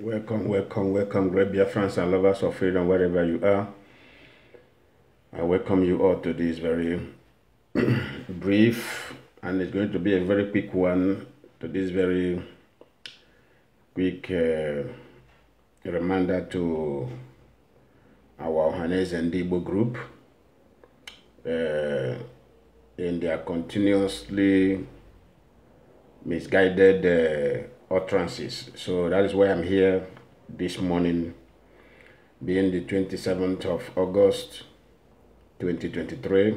Welcome, welcome, welcome, great dear friends and lovers of freedom, wherever you are. I welcome you all to this very brief, and it's going to be a very quick one, to this very quick uh, reminder to our Hanes and Debo group uh, in their continuously misguided uh, utterances. So that is why I'm here this morning, being the 27th of August 2023,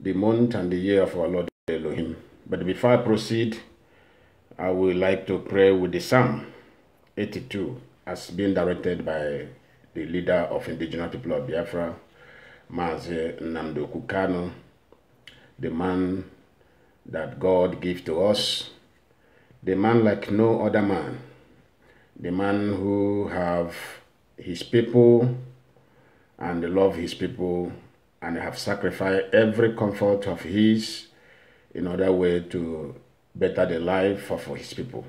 the month and the year of our Lord Elohim. But before I proceed, I would like to pray with the Psalm 82 as being directed by the leader of indigenous people of Biafra, Maze Namdo Kukano, the man that God gave to us the man like no other man, the man who have his people and love his people and have sacrificed every comfort of his in order way to better the life of his people.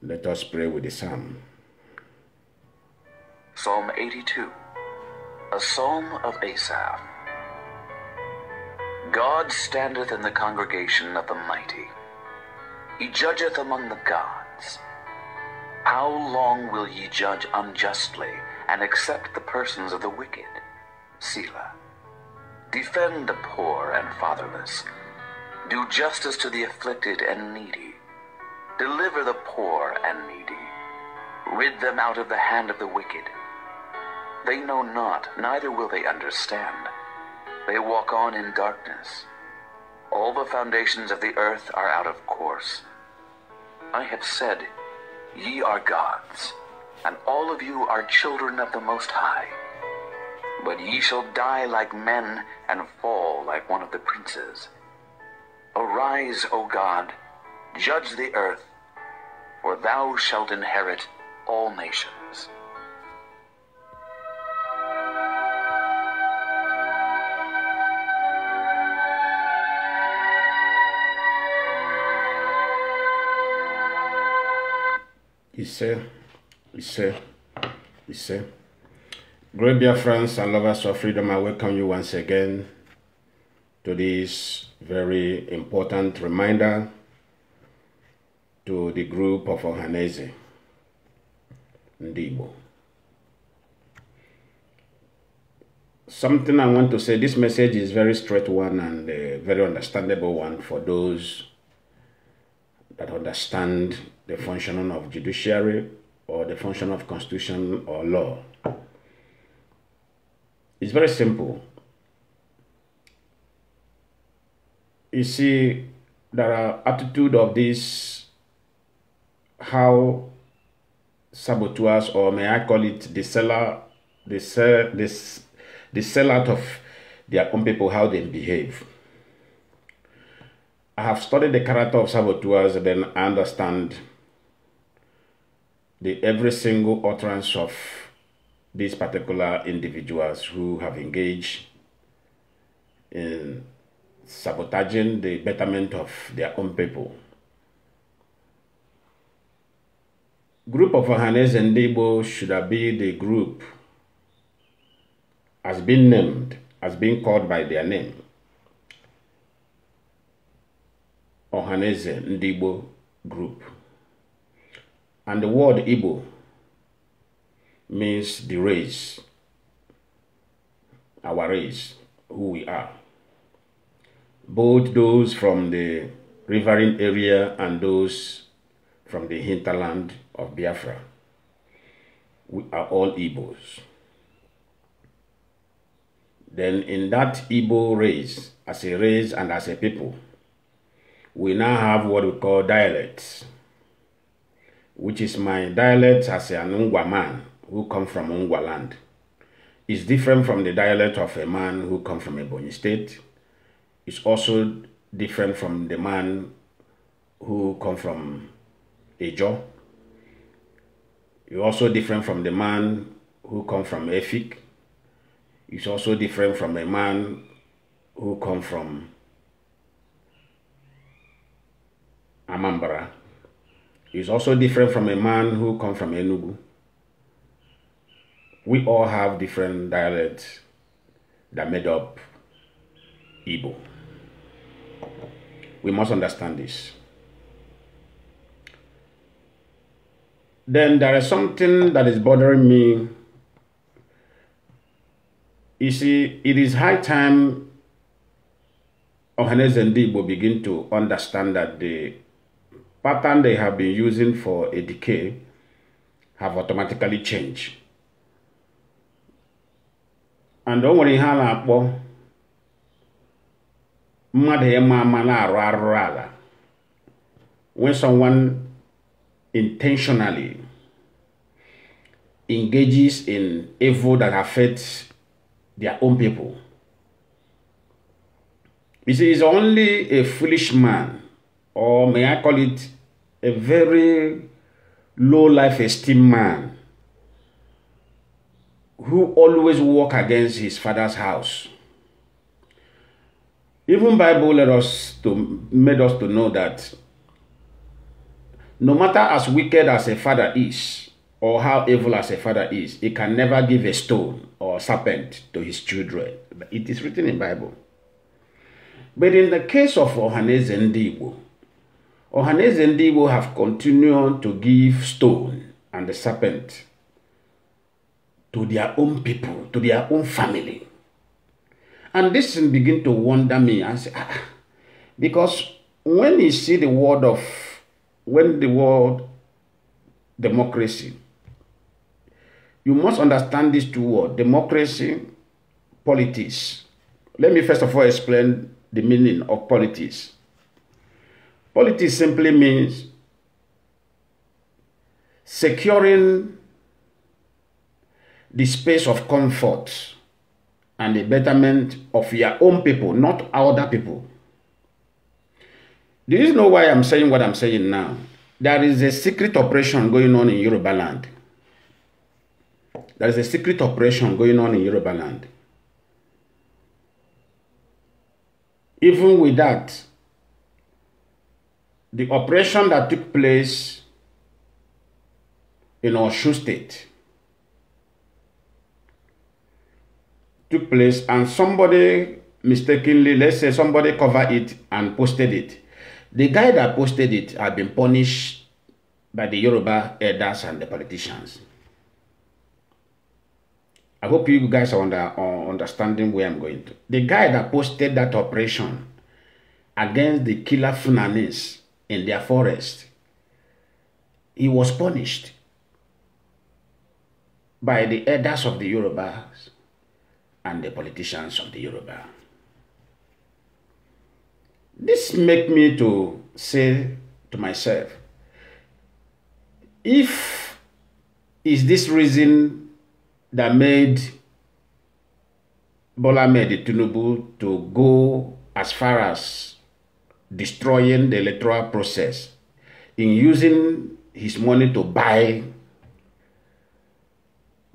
Let us pray with the psalm. Psalm 82, a psalm of Asaph. God standeth in the congregation of the mighty. He judgeth among the gods. How long will ye judge unjustly and accept the persons of the wicked? Selah. Defend the poor and fatherless. Do justice to the afflicted and needy. Deliver the poor and needy. Rid them out of the hand of the wicked. They know not, neither will they understand. They walk on in darkness. All the foundations of the earth are out of course. I have said, Ye are gods, and all of you are children of the Most High. But ye shall die like men and fall like one of the princes. Arise, O God, judge the earth, for thou shalt inherit all nations. Ise, Ise, Ise. Great dear friends and lovers of freedom, I welcome you once again to this very important reminder to the group of Ohanese, Ndibo. Something I want to say, this message is very straight one and very understandable one for those that understand the functioning of judiciary or the function of constitution or law. It's very simple. You see, there are attitude of this, how saboteurs, or may I call it the seller, the, sell, the, the sellout of their own people, how they behave. I have studied the character of saboteurs, then I understand the every single utterance of these particular individuals who have engaged in sabotaging the betterment of their own people. Group of Ohanes and Igbo should have been the group has been named, has been called by their name. and Ndibo group. And the word Igbo means the race, our race, who we are. Both those from the riverine area and those from the hinterland of Biafra. We are all Igbos. Then in that Igbo race, as a race and as a people, we now have what we call dialects which is my dialect as an Ungwa man who come from Ungwa land, is different from the dialect of a man who come from a Ebonyi state. It's also different from the man who come from Ejo. It's also different from the man who come from Efik. It's also different from a man who come from Amambra is also different from a man who come from Enugu. We all have different dialects that made up Igbo. We must understand this. Then there is something that is bothering me. You see, it is high time Ohanes and Igbo begin to understand that the pattern they have been using for a decay have automatically changed. And don't worry, a na-akpọ mmadụ when someone intentionally engages in evil that affects their own people. You see, it's only a foolish man, or may I call it a very low life esteem man who always walk against his father's house. Even Bible let us to made us to know that no matter as wicked as a father is, or how evil as a father is, he can never give a stone or serpent to his children. It is written in Bible. But in the case of Ohanes Dibu, Ohanes and Debo have continued to give stone and the serpent to their own people, to their own family. And this begin to wonder me and say, ah, because when you see the word of, when the word democracy, you must understand these two words, democracy, politics. Let me first of all explain the meaning of politics. Politics simply means securing the space of comfort and the betterment of your own people, not other people. Do you know why I'm saying what I'm saying now? There is a secret operation going on in Yoruba land. There is a secret operation going on in Yoruba land. Even with that, the operation that took place in Oshu State took place and somebody mistakenly, let's say somebody covered it and posted it. The guy that posted it had been punished by the Yoruba elders and the politicians. I hope you guys are under, uh, understanding where I'm going to. The guy that posted that operation against the killer Funanis in their forest. He was punished by the elders of the Yorubas and the politicians of the Yoruba. This make me to say to myself, if is this reason that made Bola Tinubu to go as far as destroying the electoral process, in using his money to buy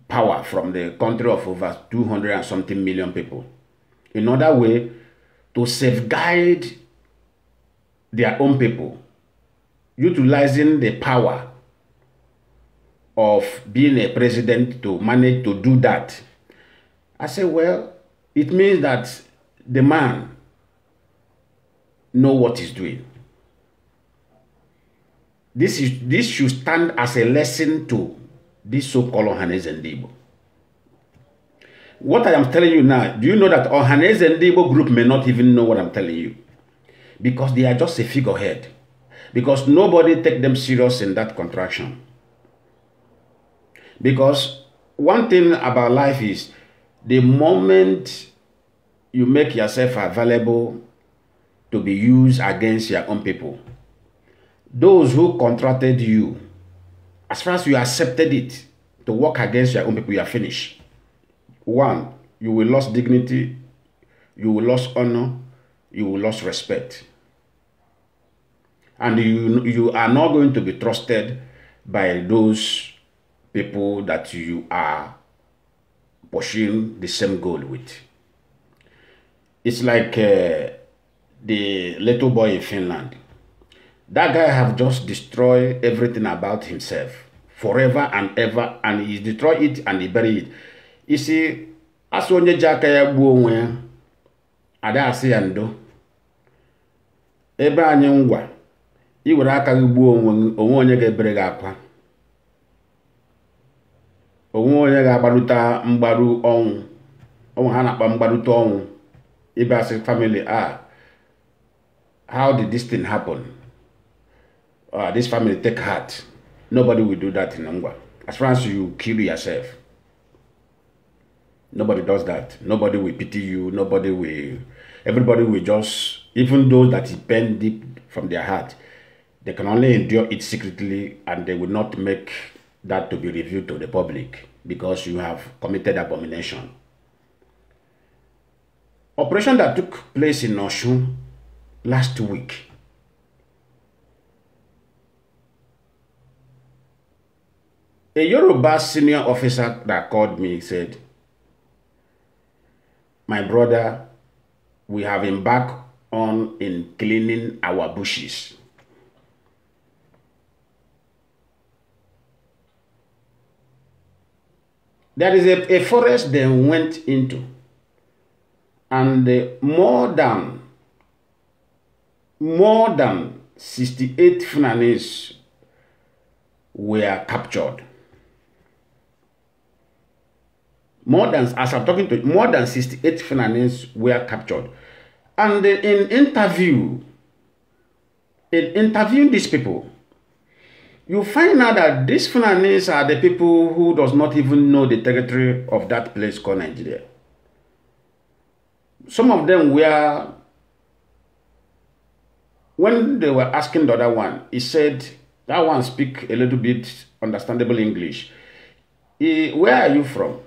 power from the country of over 200 and something million people. Another way to safeguard their own people, utilizing the power of being a president to manage to do that. I say, well, it means that the man know what he's doing. This, is, this should stand as a lesson to this so-called Ohanes and Debo. What I am telling you now, do you know that Ohanes and Debo group may not even know what I'm telling you? Because they are just a figurehead. Because nobody take them serious in that contraction. Because one thing about life is the moment you make yourself available to be used against your own people. Those who contracted you, as far as you accepted it to work against your own people, you are finished. One, you will lose dignity, you will lose honor, you will lose respect. And you, you are not going to be trusted by those people that you are pursuing the same goal with. It's like uh, the little boy in Finland. That guy have just destroyed everything about himself forever and ever and he destroy it and he bury it. You see, asị onye ji aka ya gbuo onwe ya ada asị ya ndo ebe anyị ngwa were aka gị gbuo onwe onye ga-ebere gị akwa onwe onye ga-agbalụta mgbaru ọnwụ ọnwụ ha na-akpa mgbarụta ọnwụ ịbịa sị famili a ah, how did this thing happen? Uh, this family take heart. Nobody will do that in Angwa. As far as you kill yourself, nobody does that. Nobody will pity you. Nobody will. Everybody will just, even those that is bent deep from their heart, they can only endure it secretly and they will not make that to be revealed to the public because you have committed abomination. Operation that took place in Oshun last week. A Yoruba senior officer that called me said, My brother, we have embarked on in cleaning our bushes. There is a, a forest they went into, and more than more than 68 Fulanese were captured. More than, as I'm talking to you, more than 68 Fulanese were captured. And in interview, in interviewing these people, you find out that these Fulanese are the people who does not even know the territory of that place called Nigeria. Some of them were When they were asking the other one, he said, that one speak a little bit understandable English. He, where are you from?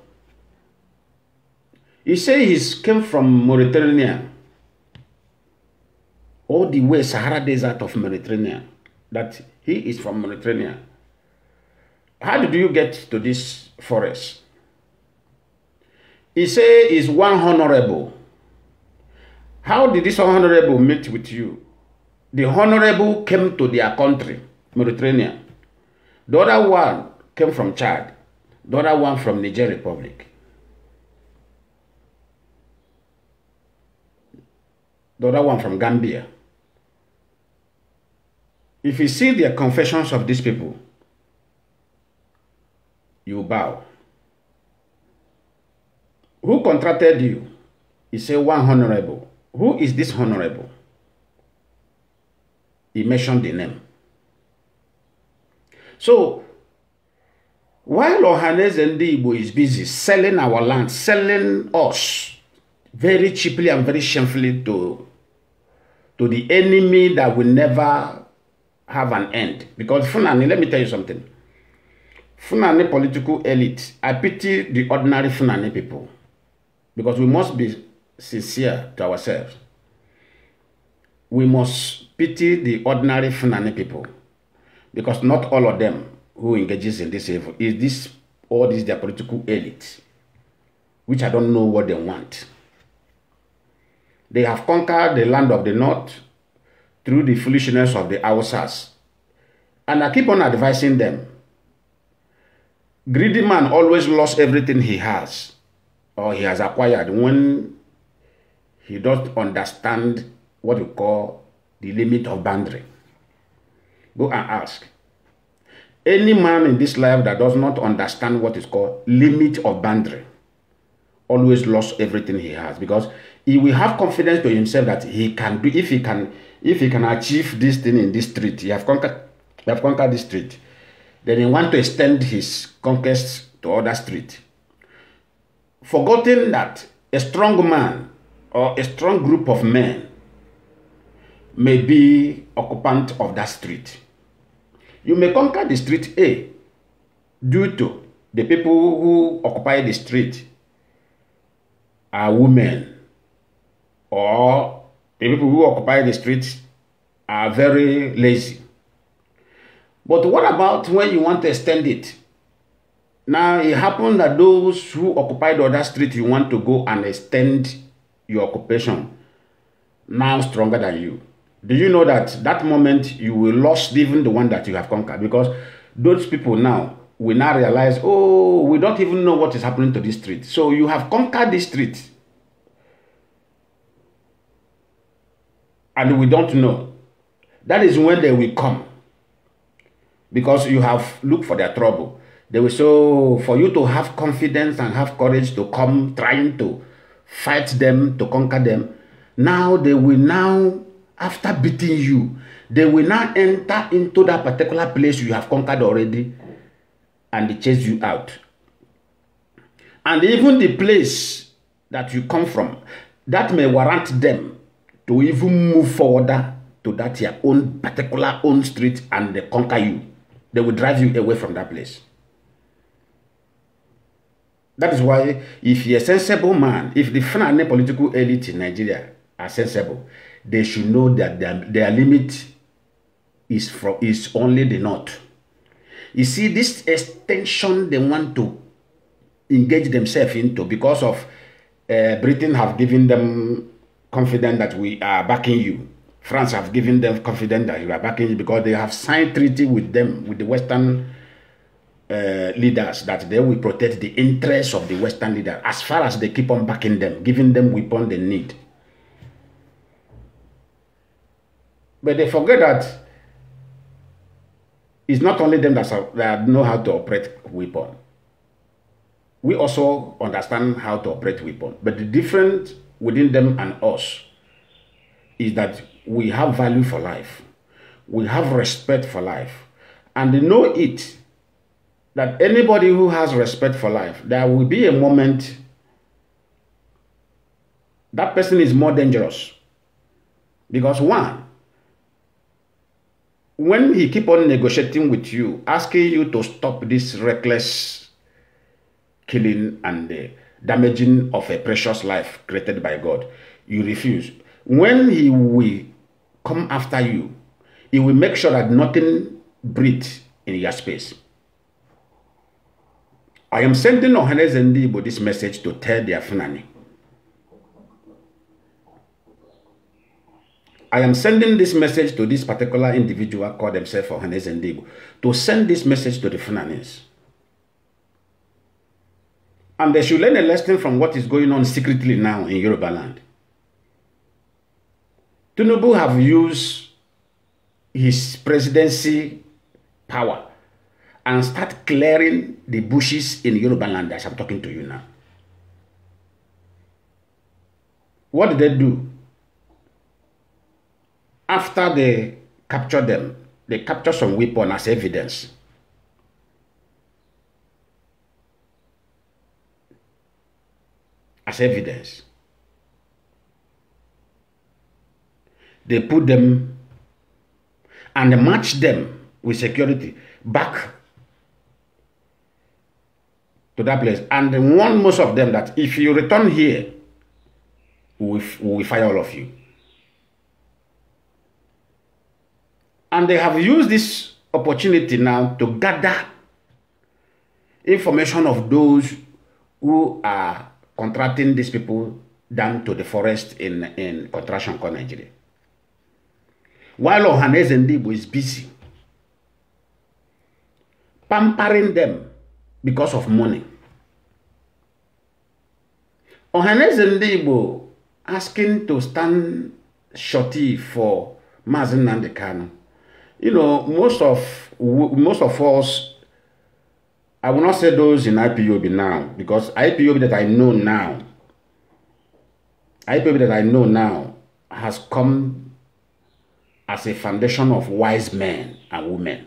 He said he came from Mauritania. All the way Sahara Desert of Mauritania. That he is from Mauritania. How did you get to this forest? He said he's one honorable. How did this honorable meet with you? the honorable came to their country, Mediterranean. The other one came from Chad. The other one from Niger Republic. The other one from Gambia. If you see the confessions of these people, you bow. Who contracted you? He said, one honorable. Who is this honorable? he mentioned the name. So, while Ohanes Ndigbo is busy selling our land, selling us very cheaply and very shamefully to, to the enemy that will never have an end. Because Funani, let me tell you something. Funani political elite, I pity the ordinary Funani people. Because we must be sincere to ourselves we must pity the ordinary Fulani people because not all of them who engages in this evil is this all this their political elite, which I don't know what they want. They have conquered the land of the north through the foolishness of the Hausas. And I keep on advising them. Greedy man always lost everything he has or he has acquired when he doesn't understand what you call the limit of boundary. Go and ask. Any man in this life that does not understand what is called limit of boundary always lost everything he has because he will have confidence to himself that he can do if he can if he can achieve this thing in this street he have conquered he have conquered this street then he want to extend his conquest to other street forgetting that a strong man or a strong group of men may be occupant of that street. You may conquer the street A due to the people who occupy the street are women or the people who occupy the street are very lazy. But what about when you want to extend it? Now, it happened that those who occupied other street, you want to go and extend your occupation now stronger than you. Do you know that that moment you will lost even the one that you have conquered? Because those people now will now realize, oh, we don't even know what is happening to this street. So you have conquered this street. And we don't know. That is when they will come. Because you have looked for their trouble. They will so oh, for you to have confidence and have courage to come trying to fight them, to conquer them. Now they will now after beating you, they will now enter into that particular place you have conquered already and they chase you out. And even the place that you come from, that may warrant them to even move forward to that your own particular own street and they conquer you. They will drive you away from that place. That is why if you're a sensible man, if the Fulani political elite in Nigeria are sensible, they should know that their, their limit is from is only the north. You see, this extension they want to engage themselves into because of uh, Britain have given them confidence that we are backing you. France have given them confidence that you are backing you because they have signed treaty with them, with the Western uh, leaders, that they will protect the interests of the Western leader as far as they keep on backing them, giving them weapon they need. But they forget that it's not only them that know how to operate weapon. We also understand how to operate weapon. But the difference within them and us is that we have value for life. We have respect for life. And they know it that anybody who has respect for life, there will be a moment that person is more dangerous. Because one, when he keep on negotiating with you, asking you to stop this reckless killing and damaging of a precious life created by God, you refuse. When he will come after you, he will make sure that nothing breathes in your space. I am sending Ohanes and this message to tell their Funani I am sending this message to this particular individual called himself Ohanes Ndigo to send this message to the Fulanese. And they should learn a lesson from what is going on secretly now in Yoruba land. have used his presidency power and start clearing the bushes in Yoruba land as I'm talking to you now. What did they do? after they capture them, they capture some weapon as evidence. As evidence. They put them and match them with security back to that place and warn most of them that if you return here, we will fire all of you. And they have used this opportunity now to gather information of those who are contracting these people down to the forest in, in Contraction Core Nigeria. While Ohanes Ndibo is busy pampering them because of money. Ohanes Ndibo asking to stand shorty for Mazen Nandekano you know, most of most of us, I will not say those in IPOB now because IPOB that I know now, IPOB that I know now has come as a foundation of wise men and women.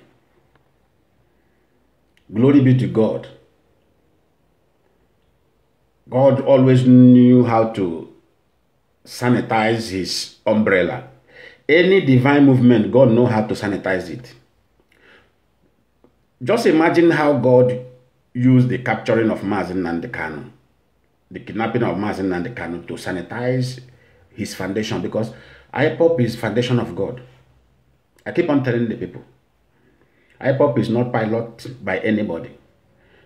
Glory be to God. God always knew how to sanitize his umbrella any divine movement, God know how to sanitize it. Just imagine how God used the capturing of Mazin and the cannon, the kidnapping of Mazin and the cannon, to sanitize his foundation because IPOP is foundation of God. I keep on telling the people, IPOP is not piloted by anybody,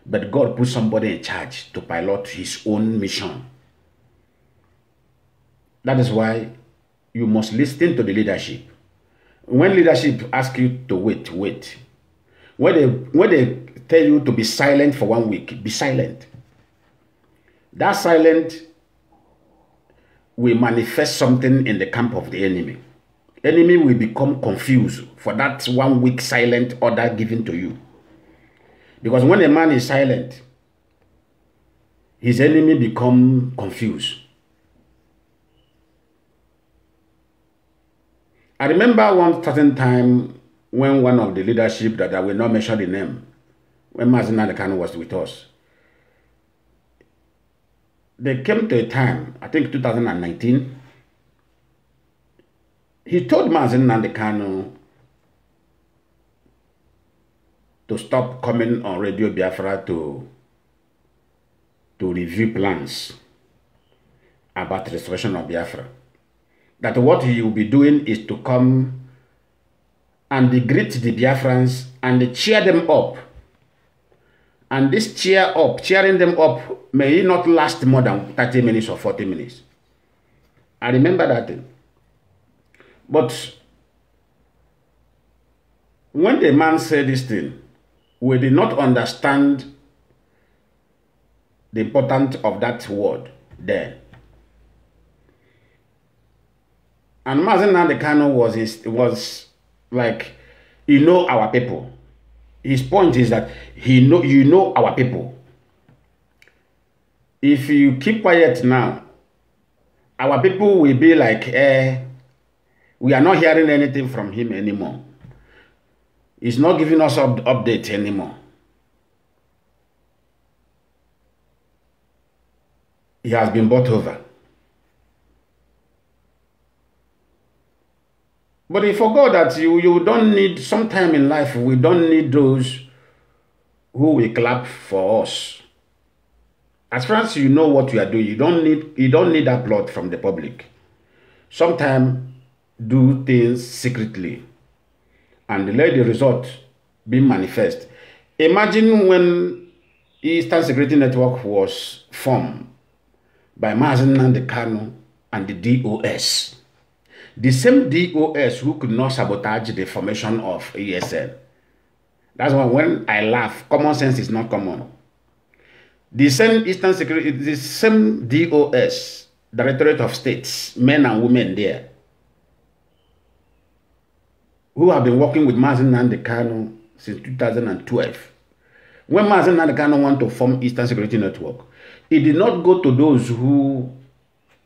but God put somebody in charge to pilot his own mission. That is why you must listen to the leadership. When leadership ask you to wait, wait. When they, when they tell you to be silent for one week, be silent. That silent will manifest something in the camp of the enemy. Enemy will become confused for that one week silent order given to you. Because when a man is silent, his enemy become confused. I remember one certain time when one of the leadership that I will not mention the name, when Mazin Adekano was with us, they came to a time, I think 2019, he told Mazin Nandekano to stop coming on Radio Biafra to, to review plans about restoration of Biafra. that what he will be doing is to come and greet the Biafrans and cheer them up. And this cheer up, cheering them up, may not last more than 30 minutes or 40 minutes. I remember that thing. But when the man said this thing, we did not understand the importance of that word then. And Mazen Nandekano was was like, you know our people. His point is that he know you know our people. If you keep quiet now, our people will be like, eh, we are not hearing anything from him anymore. He's not giving us up, updates anymore. He has been bought over. But he forgot that you, you don't need, sometime in life, we don't need those who will clap for us. As far as you know what you are doing, you don't need, you don't need applaud from the public. Sometime do things secretly and let the result be manifest. Imagine when Eastern Security Network was formed by Mazen and the Kano and the DOS the same DOS who could not sabotage the formation of ESN. That's why when I laugh, common sense is not common. The same Eastern Security, the same DOS, Directorate of States, men and women there, who have been working with Mazin Nandekano since 2012. When Mazin Nandekano wanted to form Eastern Security Network, he did not go to those who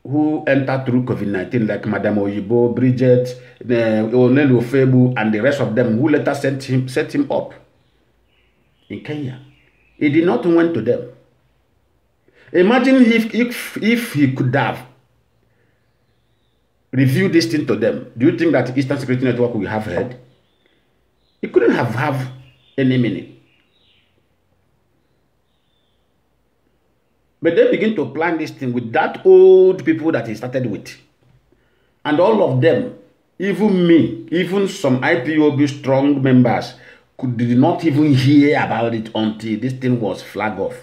who entered through COVID-19, like Madame Oyibo, Bridget, uh, Onelu Febu, and the rest of them who later sent him, set him up in Kenya. He did not went to them. Imagine if, if, if he could have reviewed this thing to them. Do you think that Eastern Security Network would have heard? He couldn't have have any minute. But they begin to plan this thing with that old people that he started with. And all of them, even me, even some IPOB strong members, could did not even hear about it until this thing was flag off.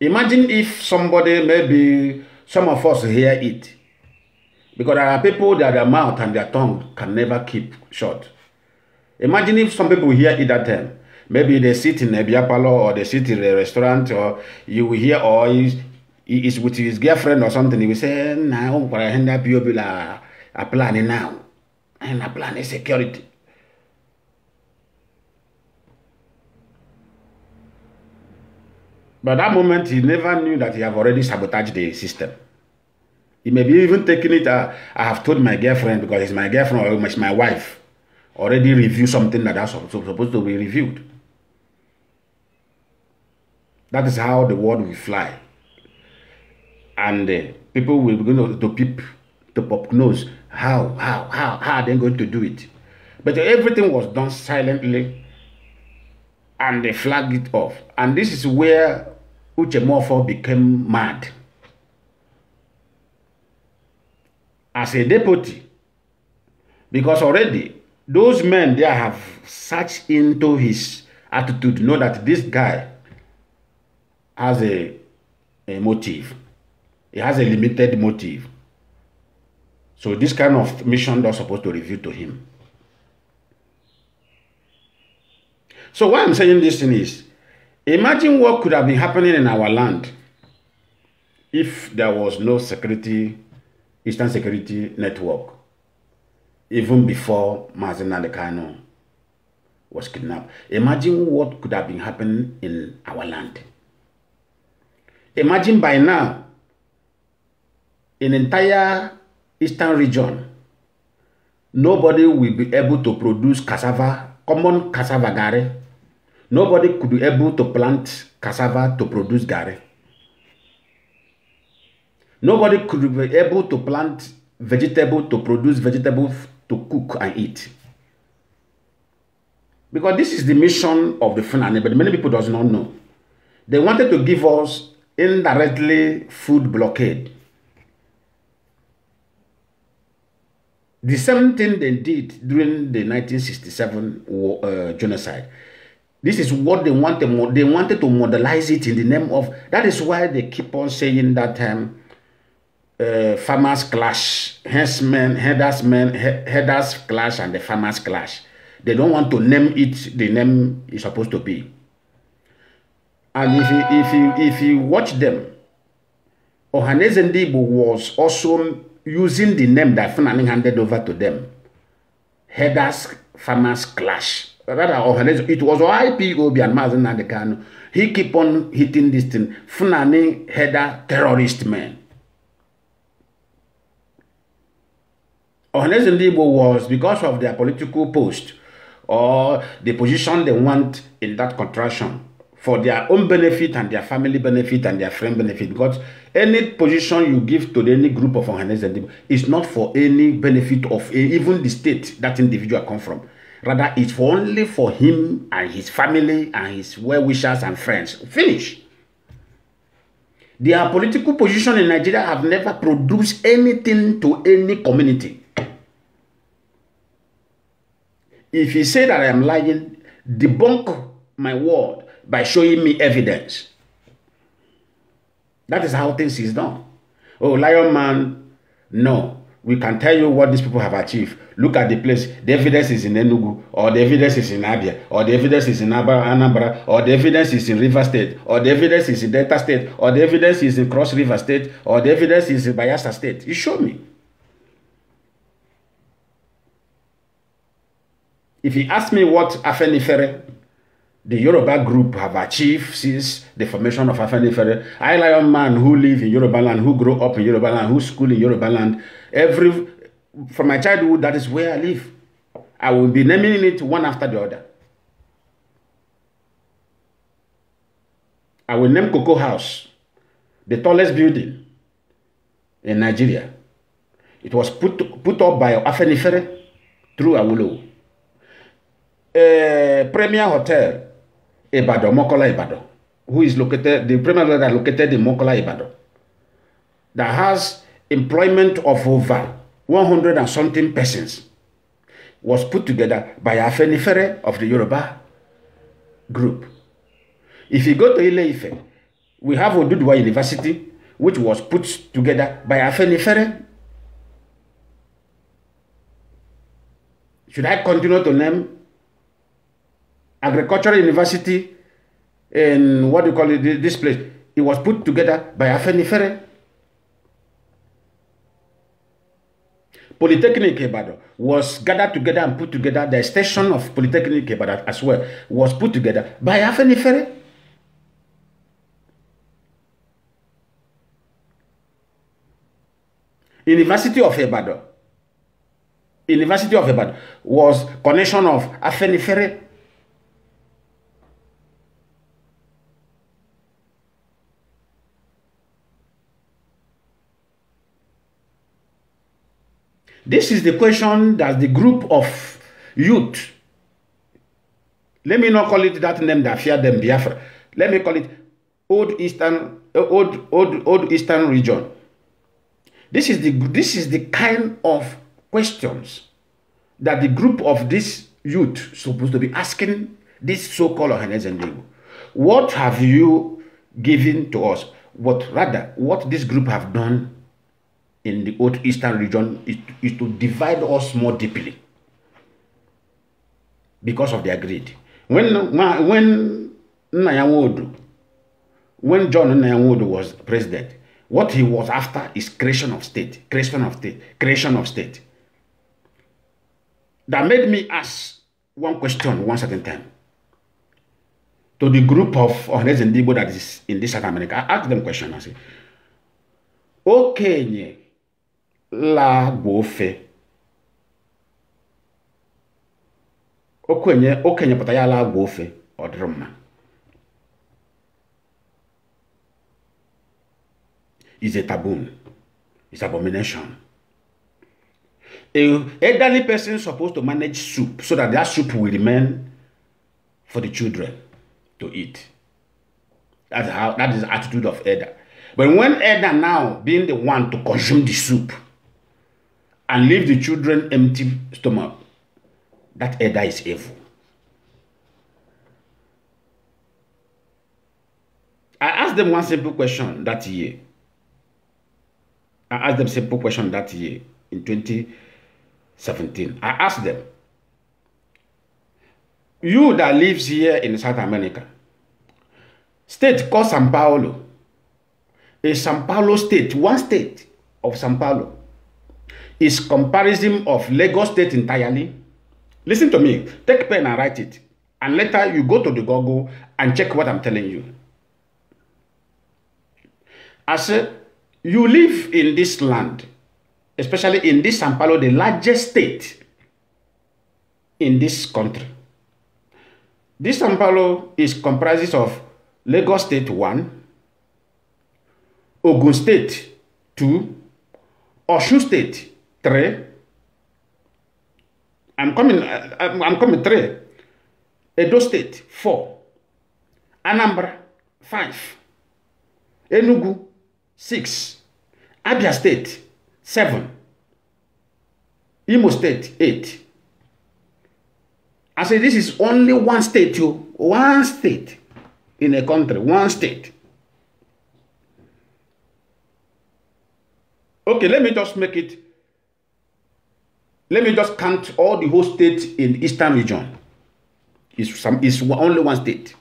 Imagine if somebody, maybe some of us hear it. Because there are people that their mouth and their tongue can never keep short. Imagine if some people hear it at time maybe they sit in a beer or they sit in the restaurant or you will hear or he is with his girlfriend or something he will say na o kwara hen that bio bila a plan now and a plan is security But that moment, he never knew that he have already sabotaged the system. He may be even taking it, uh, I have told my girlfriend, because he's my girlfriend or my wife, already review something that that's supposed to be reviewed. That is how the world will fly. And uh, people will begin to, to peep, to pop nose. How, how, how, how are they going to do it? But everything was done silently and they flagged it off. And this is where Uche Uchemofo became mad. As a deputy, because already those men there have searched into his attitude, know that this guy has a, a motive. It has a limited motive. So this kind of mission they're supposed to reveal to him. So why I'm saying this thing is, imagine what could have been happening in our land if there was no security, Eastern Security Network, even before Mazen Adekano was kidnapped. Imagine what could have been happening in our land. Imagine by now, in entire eastern region, nobody will be able to produce cassava, common cassava gari. Nobody could be able to plant cassava to produce gari. Nobody could be able to plant vegetable to produce vegetable to cook and eat. Because this is the mission of the Fulani, but many people does not know. They wanted to give us indirectly food blockade. The same thing they did during the 1967 war, uh, genocide. This is what they wanted. They wanted to modelize it in the name of. That is why they keep on saying that Um, uh, farmers clash, headers men, headers clash, and the farmers clash. They don't want to name it the name it's supposed to be. And if you, if you, if you watch them, Ohaneze Ndibo was also using the name that Fulani handed over to them. Headers, farmers clash. Rather, Ohaneze, it was IPOB and Mazen Nadekano. He keep on hitting this thing. Fulani header terrorist man. Ohaneze Ndibo was because of their political post or the position they want in that contraction for their own benefit and their family benefit and their friend benefit. Because any position you give to any group of organized is not for any benefit of a, even the state that individual come from. Rather, it's for only for him and his family and his well-wishers and friends. Finish. Their political position in Nigeria have never produced anything to any community. If you say that I am lying, debunk my word by showing me evidence. That is how things is done. Oh, Lion Man, no. We can tell you what these people have achieved. Look at the place. The evidence is in Enugu, or the evidence is in Abia, or the evidence is in Anambra, or the evidence is in River State, or the evidence is in Delta State, or the evidence is in Cross River State, or the evidence is in Bayelsa State. You show me. If you ask me what Afenifere the Yoruba group have achieved since the formation of Afenifere. I a man who live in Yoruba land, who grow up in Yoruba land, who school in Yoruba land. Every from my childhood, that is where I live. I will be naming it one after the other. I will name Cocoa House, the tallest building in Nigeria. It was put, put up by Afenifere through Awolowo. Uh, Premier Hotel, Ibadan, Mokola Ibadan, who is located, the premier that located in Mokola Ibadan, that has employment of over one hundred and something persons, was put together by Afenifere of the Yoruba group. If you go to ile we have Oduduwa University, which was put together by Afenifere. Should I continue to name agricultural university in what do you call it, this place. It was put together by Afenifere. Polytechnic Ibadan was gathered together and put together. The station of Polytechnic Ibadan as well was put together by Afenifere. University of Ibadan. University of Ibadan was connection of Afenifere This is the question that the group of youth, let me not call it that name that fear them, Biafra. Let me call it Old Eastern, eh, Old, Old, Old Eastern region. This is, the, this is the kind of questions that the group of this youth supposed to be asking this so-called Ohanes What have you given to us? What rather, what this group have done in the old eastern region is, is to divide us more deeply because of their greed. When when Nyanwodu, when John Nyanwodu was president, what he was after is creation of state, creation of state, creation of state. That made me ask one question one certain time to the group of honest Igbo that is in this South America. I asked them question. I said, "Okay, la gbofe okenye okenye pụta ya la gwa ofe ọ dịrị mma is a taboo is abomination a elderly person supposed to manage soup so that that soup will remain for the children to eat that's how that is the attitude of elder but when elder now being the one to consume the soup and leave the children empty stomach, that elder is evil. I asked them one simple question that year. I asked them simple question that year in 2017. I asked them, you that lives here in South America, state called Sao Paulo, a Sao Paulo state, one state of Sao Paulo, is comparison of Lagos State entirely. Listen to me. Take pen and write it. And later you go to the Google and check what I'm telling you. As uh, you live in this land, especially in this Sao Paulo, the largest state in this country. This Sao Paulo is comprises of Lagos State 1, Ogun State 2, Osun State 3. I'm coming, I'm, I'm coming Three. Edo State, Four. Anambra, Five. Enugu, Six. Abia State, Seven. Imo State, Eight. I say this is only one state, you one state in a country, one state. Okay, let me just make it let me just count all the whole states in eastern region is some is only one state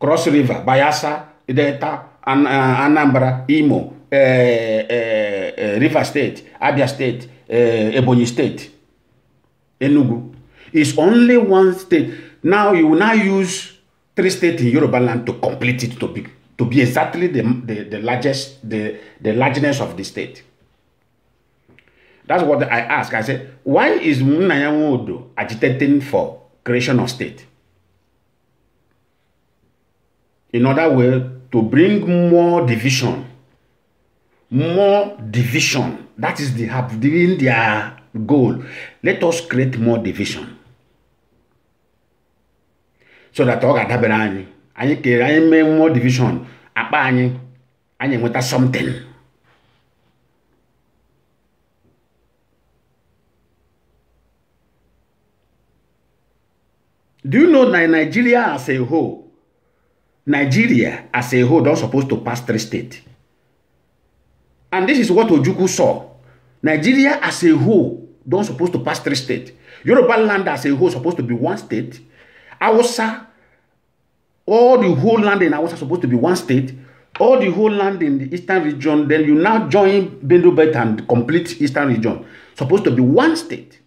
cross river bayelsa delta An uh, anambra imo uh, uh, uh river state abia state uh, ebonyi state enugu is only one state now you now use three states in yoruba land to complete it to be to be exactly the the, the largest the the largeness of the state That's what I ask. I said, why is Munayamudu agitating for creation of state? In other way, to bring more division, more division. That is the have given their goal. Let us create more division. So that ọ ga-adabere anyị anyị kere anyị mee more division akpa anyị anyị enweta something. Do you know that Nigeria as a whole, Nigeria as a whole, don't supposed to pass three states? And this is what Ojukwu saw. Nigeria as a whole, don't supposed to pass three states. Yoruba land as a whole supposed to be one state. Hausa, all the whole land in Hausa supposed to be one state. All the whole land in the eastern region, then you now join Bendu Belt and complete eastern region. Supposed to be one state.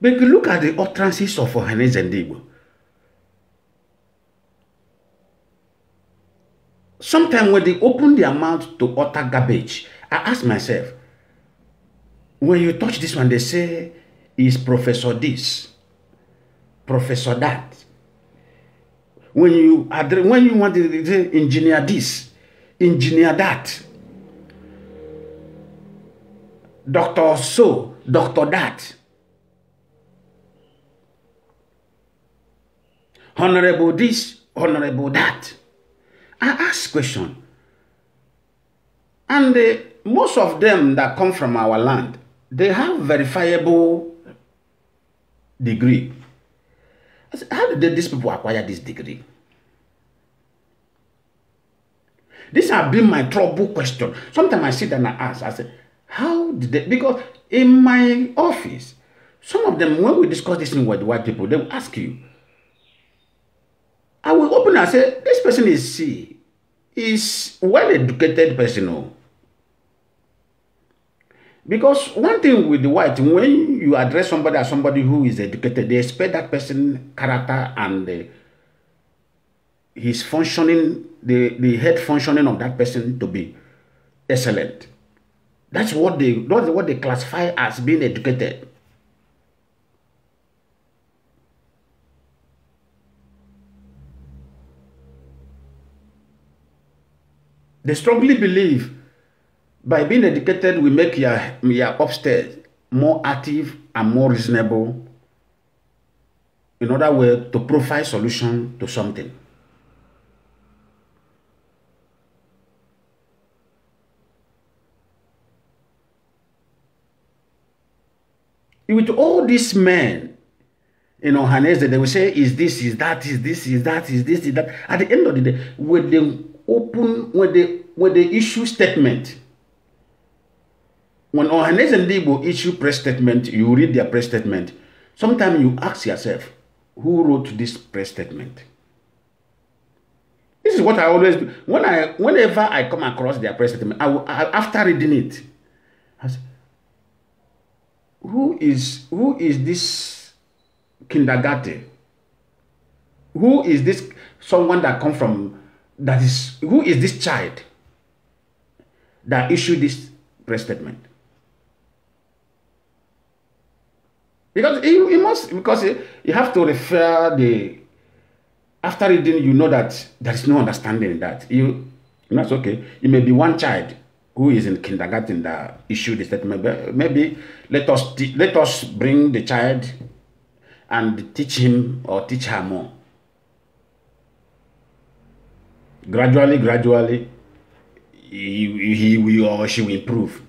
But if you look at the utterances of Ohanes and Igbo, sometimes when they open their mouth to utter garbage, I ask myself, when you touch this one, they say, is Professor this, Professor that. When you, address, when you want to say engineer this, engineer that, doctor so, doctor that, honorable this, honorable that. I ask question. And uh, most of them that come from our land, they have verifiable degree. Say, how did these people acquire this degree? This has been my trouble question. Sometimes I sit and I ask, I say, how did they? Because in my office, some of them, when we discuss this thing with white people, they will ask you, I will open and say, this person is C. Is well-educated person. Oh. Because one thing with the white, when you address somebody as somebody who is educated, they expect that person character and uh, his functioning, the, the head functioning of that person to be excellent. That's what they that's what they classify as being educated. They strongly believe by being educated, we make your, your upstairs more active and more reasonable. In other words, to provide solution to something. With all these men, you know, Hanese, they will say, is this, is that, is this, is that, is this, is that. At the end of the day, with they open when they when they issue statement. When Ohanes and Igbo issue press statement, you read their press statement. Sometimes you ask yourself, who wrote this press statement? This is what I always do. When I, whenever I come across their press statement, I, will, I after reading it, I say, who is who is this kindergarten? Who is this someone that come from that is who is this child that issued this press statement? Because you, must because you have to refer the after reading you know that there is no understanding that you that's okay. It may be one child who is in kindergarten that issued the statement. maybe let us let us bring the child and teach him or teach her more gradually, gradually, he, he will or she will improve.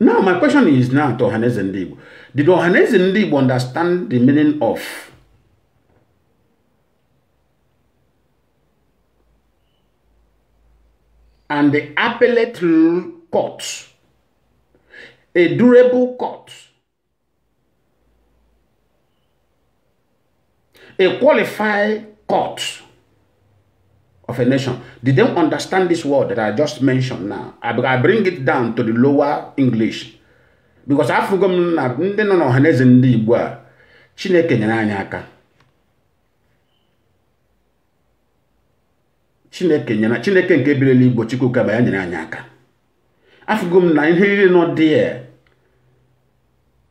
Now, my question is now to Ohanes and Did Ohanes and understand the meaning of and the appellate court, a durable court, a qualified court of a nation. Did they understand this word that I just mentioned now? I bring it down to the lower English. Because afụgo m na ndị nọ n'ọhaneze ndị Igbo a Chineke nyere anyị aka Chineke nyere Chineke nke birila Igbo chukwu ba ya nyere anyị aka afụgo m na ihe niile nọ dị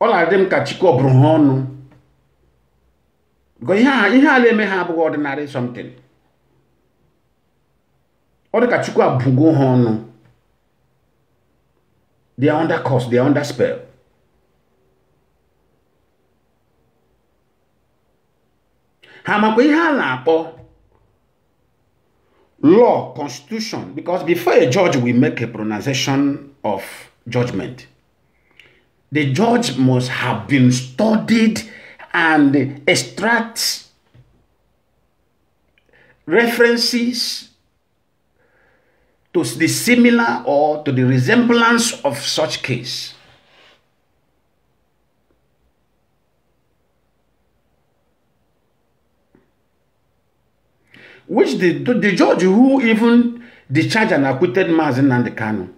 ọ na-adị m ka Chike ọ bụrụ ha ọnụ ihe a ihe ala eme ha abụghị ọdịnarị something ọ dị ka chukwu abụgo ha ọnụ they are under cost. they are under spell ha makwa ihe a na-akpọ law constitution because before a judge will make a pronunciation of judgment the judge must have been studied and extract references to the similar or to the resemblance of such case. Which the, the judge who even discharged and acquitted and the Nandekano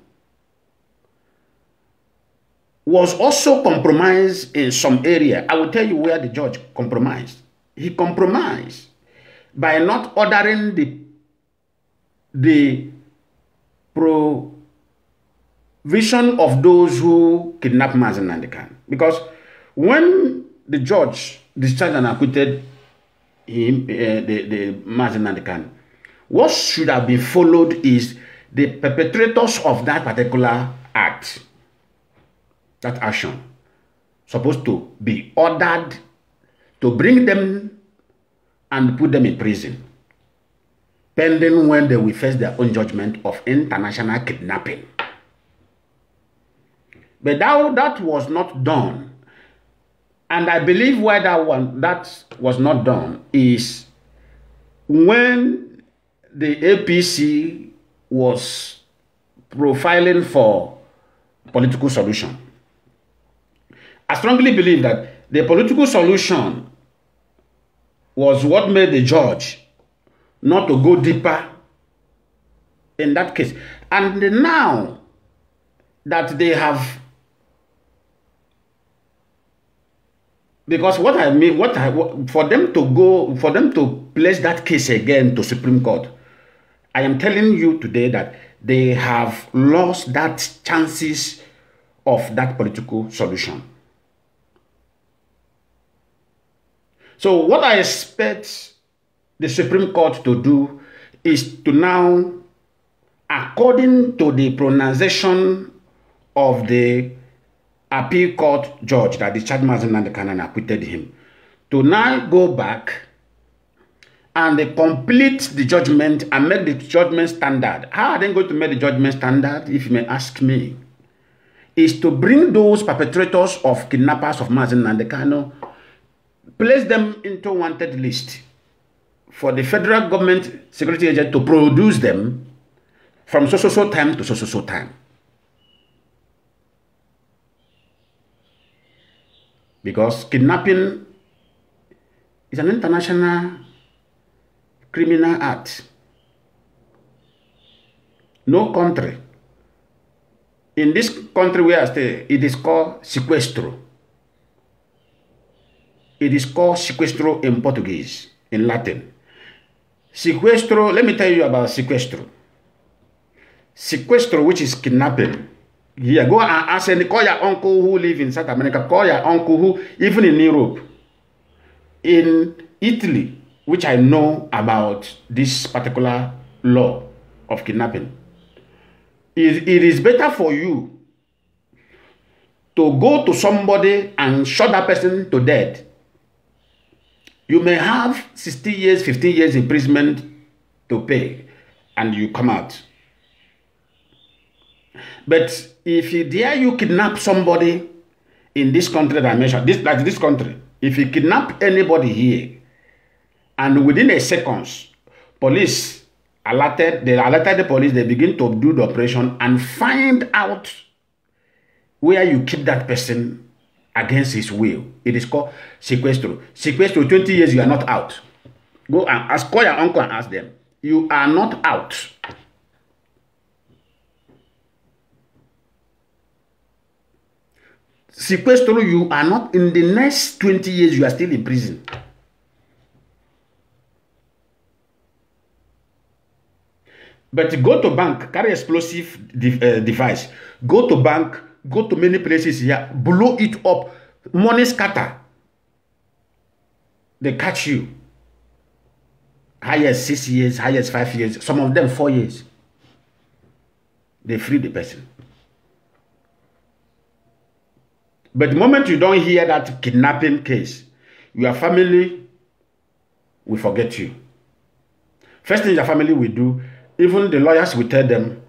was also compromised in some area. I will tell you where the judge compromised. He compromised by not ordering the, the provision of those who kidnapped Mazen Nandekan. Because when the judge discharged and acquitted him, uh, the, the Mazen Nandekan, what should have been followed is the perpetrators of that particular act that action supposed to be ordered to bring them and put them in prison pending when they will face their own judgment of international kidnapping. But that, that was not done. And I believe why that, one, that was not done is when the APC was profiling for political solution I strongly believe that the political solution was what made the judge not to go deeper in that case. And now that they have because what I mean, what I for them to go, for them to place that case again to Supreme Court, I am telling you today that they have lost that chances of that political solution. So what I expect the Supreme Court to do is to now, according to the pronunciation of the appeal court judge that the charge Mazinand Kanan acquitted him, to now go back and they complete the judgment and make the judgment standard. How are they going to make the judgment standard, if you may ask me? Is to bring those perpetrators of kidnappers of Mazinand Kanan place them into wanted list for the federal government security agent to produce them from so so so time to so so so time. Because kidnapping is an international criminal act. No country. In this country where I stay, it is called sequestro. It is called sequestro in Portuguese, in Latin. Sequestro, let me tell you about sequestro. Sequestro, which is kidnapping. Yeah, go and ask any, call your uncle who live in South America, call your uncle who, even in Europe, in Italy, which I know about this particular law of kidnapping. It, it is better for you to go to somebody and shot that person to death You may have 60 years, 15 years imprisonment to pay, and you come out. But if you dare you kidnap somebody in this country that I mentioned, this, like this country, if you kidnap anybody here, and within a seconds, police alerted, they alerted the police, they begin to do the operation and find out where you keep that person against his will. It is called sequestro. Sequestro, Twenty years you are not out. Go and ask, call your uncle and ask them. You are not out. Sequestro, you are not, in the next twenty years, you are still in prison. But go to bank, carry explosive de uh, device. Go to bank, go to many places here, blow it up, money scatter. They catch you. Highest six years, highest five years, some of them four years. They free the person. But the moment you don't hear that kidnapping case, your family will forget you. First thing your family will do, even the lawyers will tell them,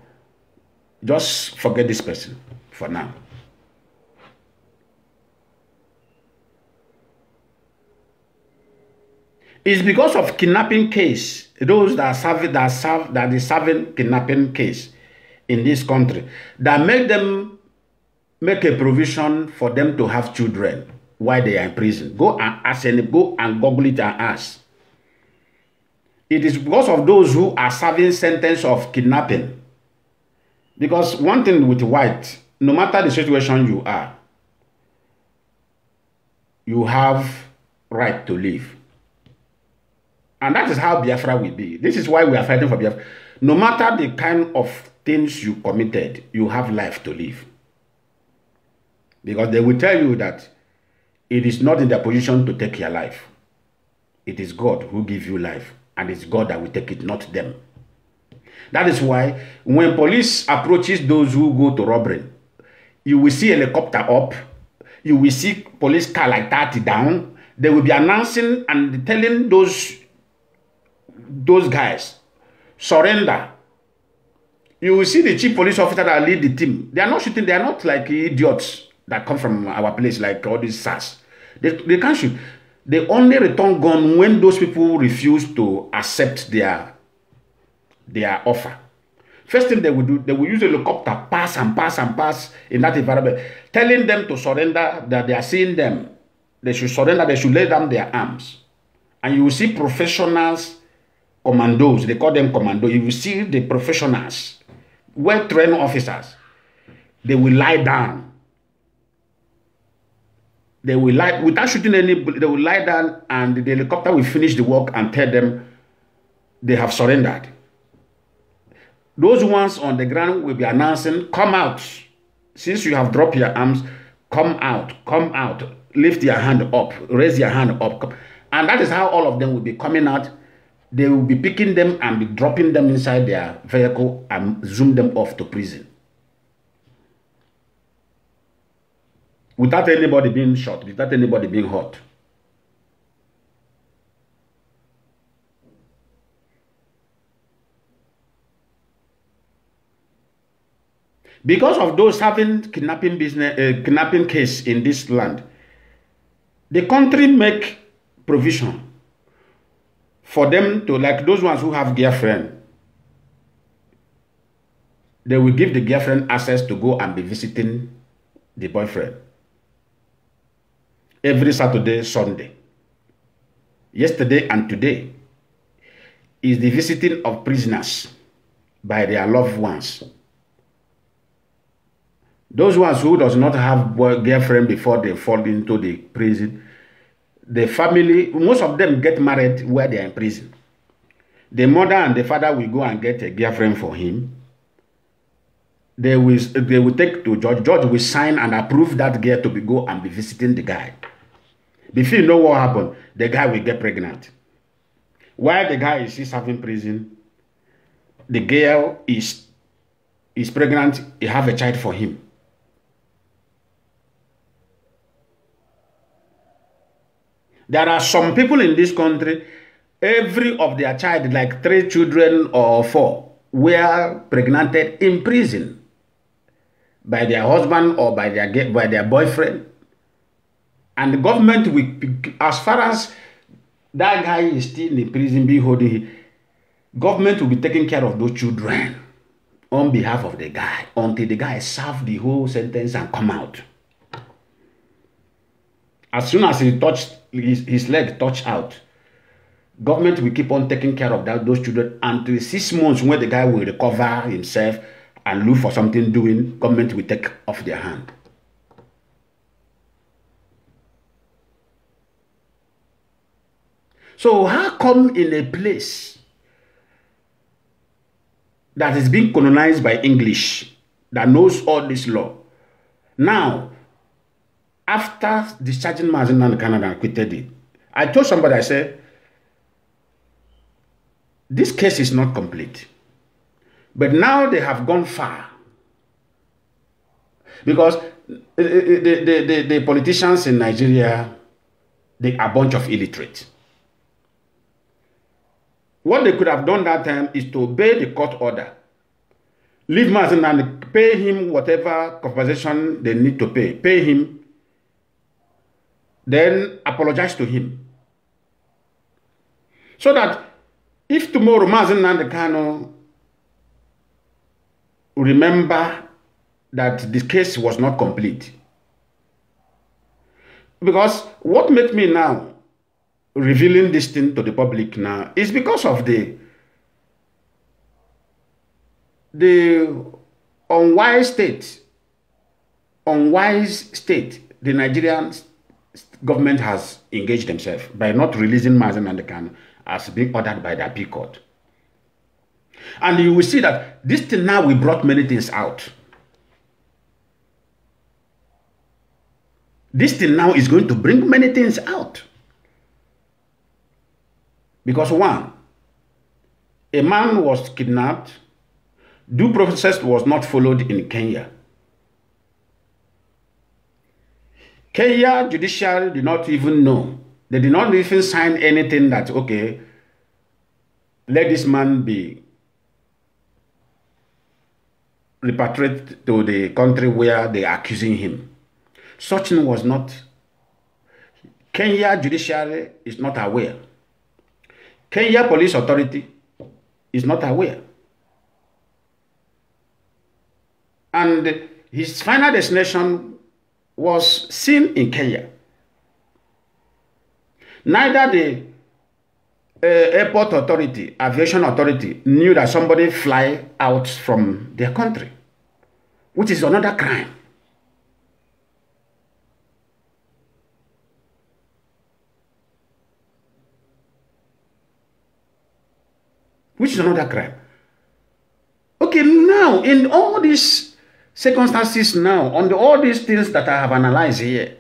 just forget this person. for now. It's because of kidnapping case, those that serve that serve that is serving kidnapping case in this country that make them make a provision for them to have children while they are in prison. Go and ask any go and google it and ask. It is because of those who are serving sentence of kidnapping. Because one thing with white, no matter the situation you are, you have right to live. And that is how Biafra will be. This is why we are fighting for Biafra. No matter the kind of things you committed, you have life to live. Because they will tell you that it is not in their position to take your life. It is God who gives you life. And it's God that will take it, not them. That is why when police approaches those who go to robbery, you will see helicopter up, you will see police car like that down. They will be announcing and telling those those guys surrender. You will see the chief police officer that lead the team. They are not shooting. They are not like idiots that come from our place like all these SARS. They, they can't shoot. They only return gun when those people refuse to accept their their offer. First thing they will do, they will use a helicopter, pass and pass and pass in that environment, telling them to surrender, that they are seeing them. They should surrender, they should lay down their arms. And you will see professionals, commandos, they call them commando. You will see the professionals, well-trained officers. They will lie down they will lie without shooting any they will lie down and the helicopter will finish the work and tell them they have surrendered those ones on the ground will be announcing, Come out. Since you have dropped your arms, come out, come out, lift your hand up, raise your hand up. And that is how all of them will be coming out. They will be picking them and be dropping them inside their vehicle and zoom them off to prison. Without anybody being shot, without anybody being hurt. Because of those having kidnapping business, uh, kidnapping case in this land, the country make provision for them to like those ones who have girlfriend. They will give the girlfriend access to go and be visiting the boyfriend every Saturday, Sunday. Yesterday and today is the visiting of prisoners by their loved ones. Those ones who does not have girlfriend before they fall into the prison, the family, most of them get married where they are in prison. The mother and the father will go and get a girlfriend for him. They will, they will take to judge. Judge will sign and approve that girl to be, go and be visiting the guy. Before you know what happened, the guy will get pregnant. While the guy is serving prison, the girl is is pregnant, he have a child for him. There are some people in this country, every of their child, like three children or four, were pregnanted in prison by their husband or by their, by their boyfriend. And the government, will, as far as that guy is still in prison, be holding government will be taking care of those children on behalf of the guy until the guy serve the whole sentence and come out. As soon as he touched his, his leg touch out. Government will keep on taking care of that, those children until six months when the guy will recover himself and look for something doing, government will take off their hand. So how come in a place that is being colonized by English that knows all this law, now after discharging Mazin in Canada and quitted it, I told somebody, I said, this case is not complete. But now they have gone far. Because eh, eh, eh, the, the, the, the politicians in Nigeria, they are a bunch of illiterate. What they could have done that time is to obey the court order. Leave Mazin and pay him whatever compensation they need to pay. Pay him then apologize to him. So that if tomorrow Mazen Nandekano remember that this case was not complete. Because what made me now revealing this thing to the public now is because of the the unwise state, unwise state the Nigerians government has engaged themselves by not releasing Mazen and can as being ordered by the appeal court. And you will see that this thing now we brought many things out. This thing now is going to bring many things out. Because one, a man was kidnapped, due process was not followed in Kenya. Kenya judiciary did not even know. They did not even sign anything that, okay, let this man be repatriated to the country where they are accusing him. Such thing was not. Kenya judiciary is not aware. Kenya police authority is not aware. And his final destination was seen in Kenya. Neither the uh, airport authority, aviation authority knew that somebody fly out from their country, which is another crime. Which is another crime. Okay, now in all these circumstances now, on the, all these things that I have analyzed here,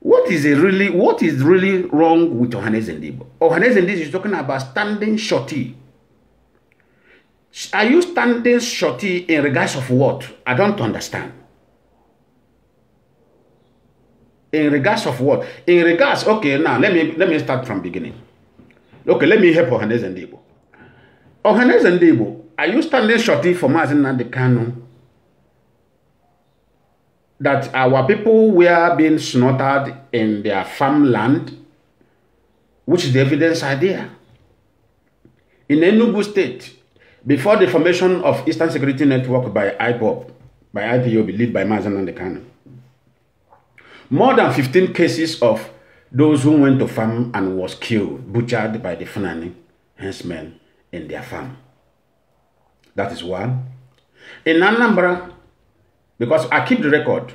what is really what is really wrong with Johannes Ndibo? Johannes Ndibo is talking about standing shorty. Are you standing shorty in regards of what? I don't understand. In regards of what? In regards, okay, now let me let me start from beginning. Okay, let me help Johannes Ndibo. Johannes Debo, are you standing shorty for the Nandekano? that our people were being slaughtered in their farmland, which is the evidence are there. In Enugu State, before the formation of Eastern Security Network by IPOB, by IPOB, led by Mazan and the Kano, more than 15 cases of those who went to farm and was killed, butchered by the Fulani henchmen in their farm. That is one. In Anambra, because I keep the record.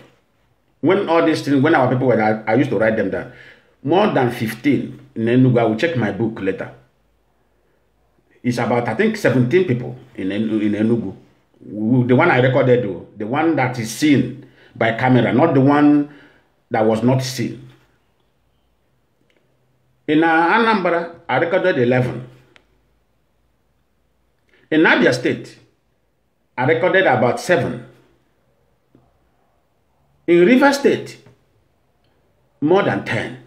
When all these things, when our people were, I, I used to write them down. More than 15 in Enugu. I will check my book later. It's about, I think, 17 people in, in Enugu. The one I recorded, though, the one that is seen by camera, not the one that was not seen. In Anambra, I recorded 11. In Abia State, I recorded about seven. In River State, more than 10.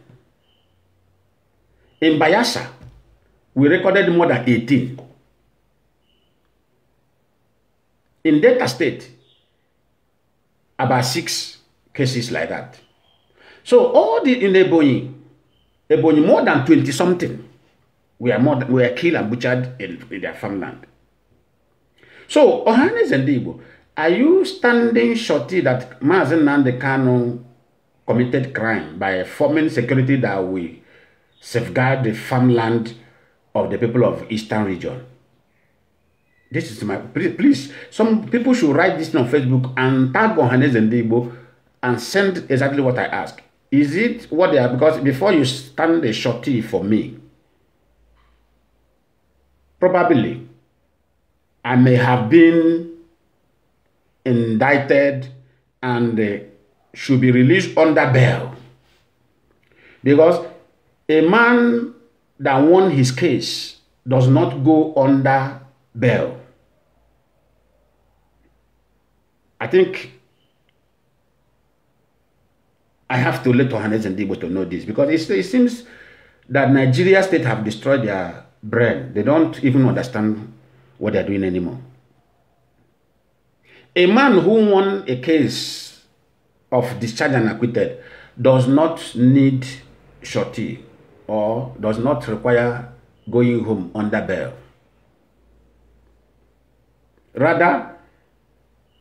In Bayasa, we recorded more than 18. In Delta State, about six cases like that. So all the in Ebonyi, Ebonyi more than 20 something we are more than, are killed and butchered in, in their farmland. So Ohanes and Igbo, Are you standing shorty that Mazen Nande Kano committed crime by forming security that will safeguard the farmland of the people of Eastern region? This is my please, please some people should write this on Facebook and tag on Hanes and Debo and send exactly what I ask. Is it what they are? Because before you stand a shorty for me, probably I may have been indicted and uh, should be released under bail. Because a man that won his case does not go under bail. I think I have to let Ohanes and Dibo to know this because it, it seems that Nigeria state have destroyed their brain. They don't even understand what they're doing anymore. A man who won a case of discharge and acquitted does not need shorty or does not require going home under bail. Rather,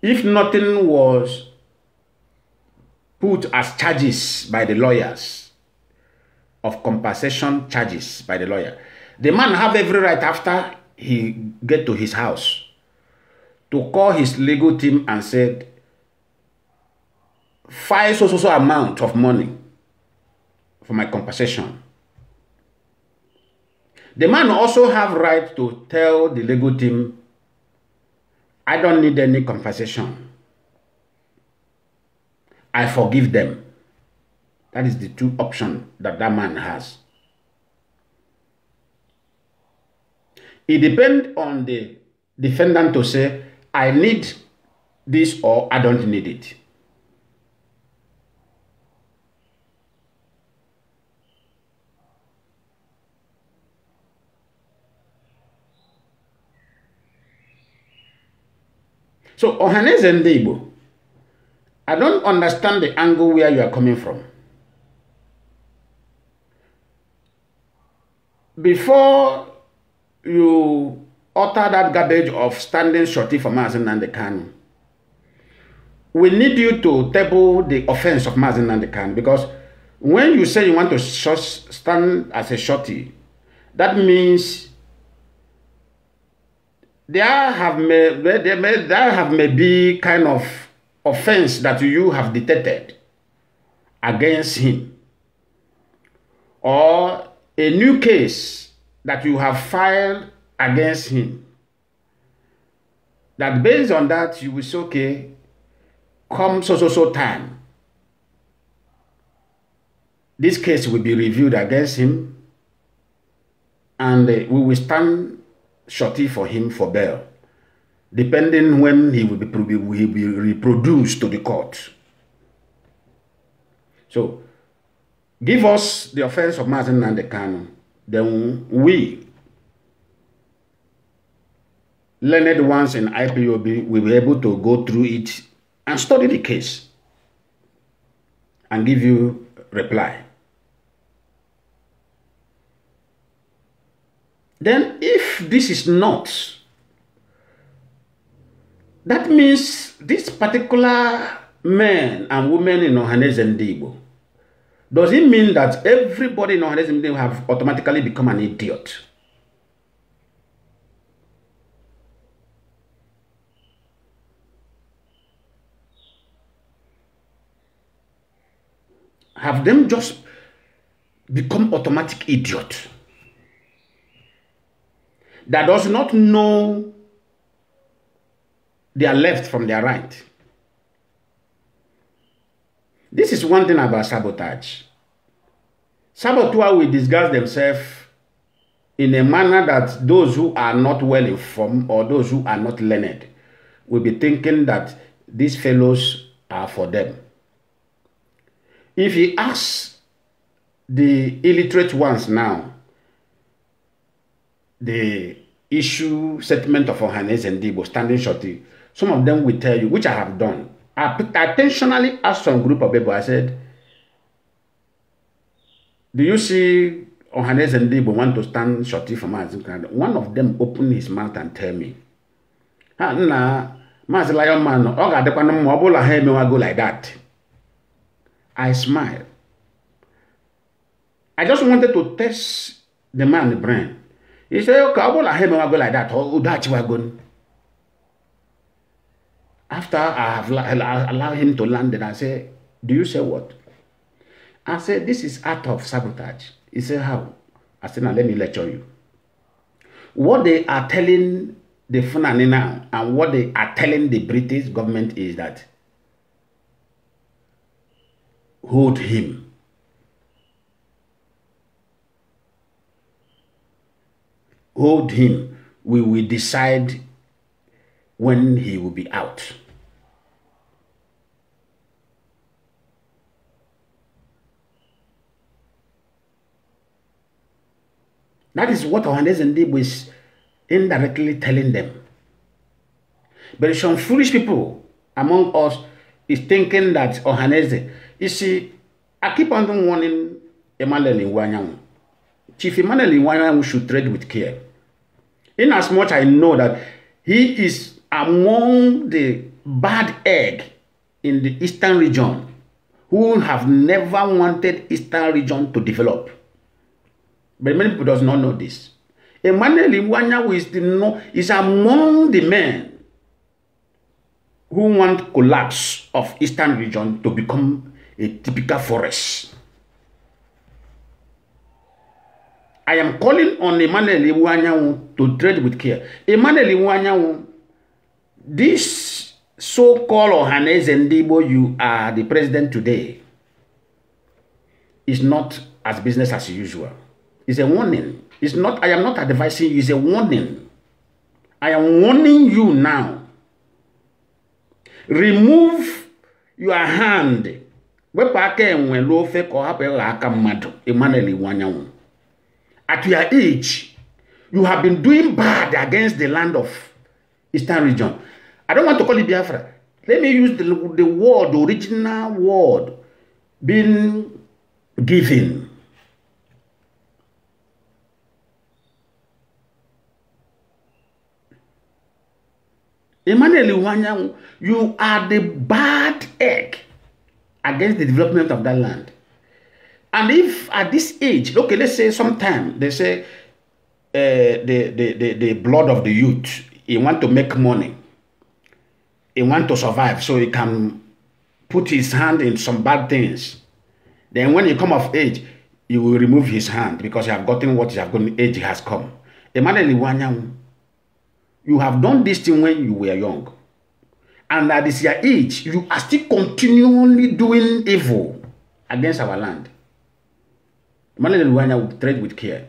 if nothing was put as charges by the lawyers of compensation charges by the lawyer, the man have every right after he get to his house to call his legal team and said, five so so so amount of money for my compensation. The man also have right to tell the legal team, I don't need any compensation. I forgive them. That is the two option that that man has. It depends on the defendant to say, I need this or I don't need it. So Ohaneze Ndeibo, I don't understand the angle where you are coming from. Before you utter that garbage of standing shorty for Mazin and the Kanu. We need you to table the offense of Mazin and the Kanu because when you say you want to stand as a shorty, that means there have may, there may, there have may be kind of offense that you have detected against him or a new case that you have filed against him. That based on that, you will say, okay, come so so so time, this case will be reviewed against him and uh, we will stand shorty for him for bail, depending when he will be, will be reproduced to the court. So, give us the offense of Martin and the canon, then we learned ones in IPOB will be able to go through it and study the case and give you reply. Then if this is not, that means this particular man and woman in Ohanes and does it mean that everybody in Ohanes and have automatically become an idiot? have them just become automatic idiot that does not know their left from their right. This is one thing about sabotage. Saboteurs will disguise themselves in a manner that those who are not well informed or those who are not learned will be thinking that these fellows are for them. If he asks the illiterate ones now, the issue settlement of Ohanes and Debo standing shorty, some of them will tell you, which I have done. I intentionally asked some group of people, I said, do you see Ohanes and Debo want to stand shorty for Maazim Canada? One of them opened his mouth and tell me, ah, nna, Maazị Lion Man, ọ ga-adịkwa na mma ọ bụla ha emewago like that. I smiled. I just wanted to test the man's brain. He said, okay, I won't let him go like that. Oh, that's where going. After I have allowed him to land it, I said, do you say what? I said, this is act of sabotage. He said, how? I said, now let me lecture you. What they are telling the Fulani now and what they are telling the British government is that hold him. Hold him. We will decide when he will be out. That is what Johannes and Dib is indirectly telling them. But some foolish people among us is thinking that Ohanese You see, I keep on warning Emmanuel Iwanyanwu. Chief Emmanuel Iwanyanwu should trade with care. In as much I know that he is among the bad egg in the eastern region who have never wanted eastern region to develop. But many people does not know this. Emmanuel Iwanyanwu is, no, is among the men who want collapse of eastern region to become a typical forest. I am calling on Emmanuel Iwanyanwu to tread with care. Emmanuel Iwanyanwu, this so-called Ohanes Ndibo, you are the president today, is not as business as usual. It's a warning. It's not, I am not advising you, it's a warning. I am warning you now. Remove your hand wepụ aka enwe lụọ ofe ka ọ aka mmadụ Emmanuel Iwuanyanwụ at your age you have been doing bad against the land of Eastern Region I don't want to call it Biafra let me use the, the word the original word being given Emmanuel Iwuanyanwụ you are the bad egg against the development of that land. And if at this age, okay, let's say sometime they say uh, the, the, the, the blood of the youth, he want to make money, he want to survive, so he can put his hand in some bad things. Then when he come of age, he will remove his hand because he have gotten what he have gotten, age has come. Emmanuel Iwanyamu, you have done this thing when you were young and at this your age, you are still continually doing evil against our land. Emmanuel Luwanya will tread with care.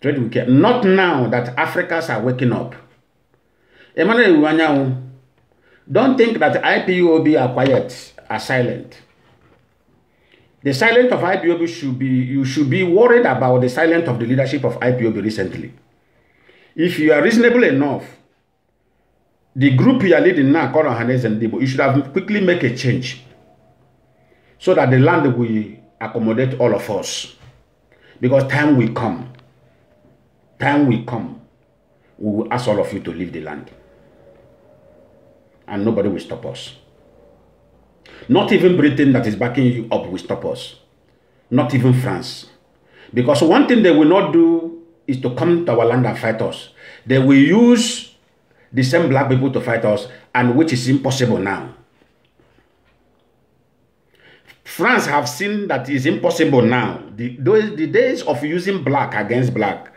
Tread with care. Not now that Africans are waking up. Emmanuel Luwanya, don't think that IPOB are quiet, are silent. The silence of IPOB should be, you should be worried about the silence of the leadership of IPOB recently. If you are reasonable enough, the group you are leading now called Hanes and Debo, you should have quickly make a change so that the land will accommodate all of us. Because time will come. Time will come. We will ask all of you to leave the land. And nobody will stop us. Not even Britain that is backing you up will stop us. Not even France. Because one thing they will not do is to come to our land and fight us. They will use the same black people to fight us, and which is impossible now. France have seen that it's impossible now. The, those, the days of using black against black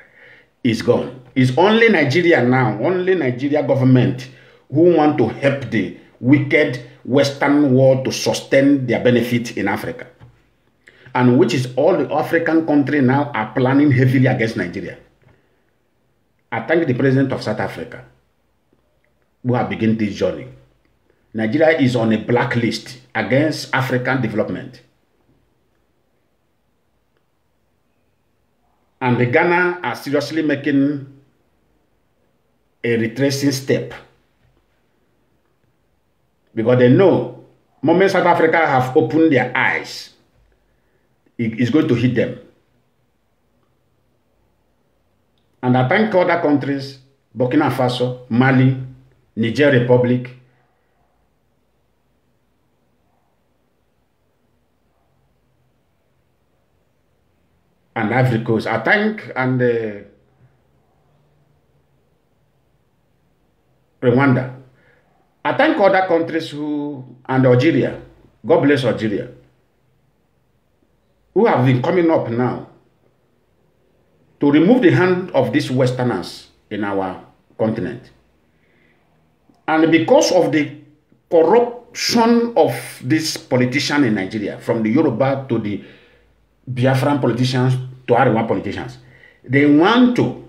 is gone. It's only Nigeria now, only Nigeria government who want to help the wicked Western world to sustain their benefit in Africa. And which is all the African countries now are planning heavily against Nigeria. I thank the president of South Africa We have begun this journey. Nigeria is on a blacklist against African development. And the Ghana are seriously making a retracing step because they know moment South Africa have opened their eyes, it is going to hit them. And I thank other countries, Burkina Faso, Mali, Niger Republic, and Ivory Coast. I thank and uh, Rwanda. I thank other countries who and Algeria. God bless Algeria. Who have been coming up now to remove the hand of these Westerners in our continent. And because of the corruption of this politician in Nigeria, from the Yoruba to the Biafran politicians to Ariwa politicians, they want to,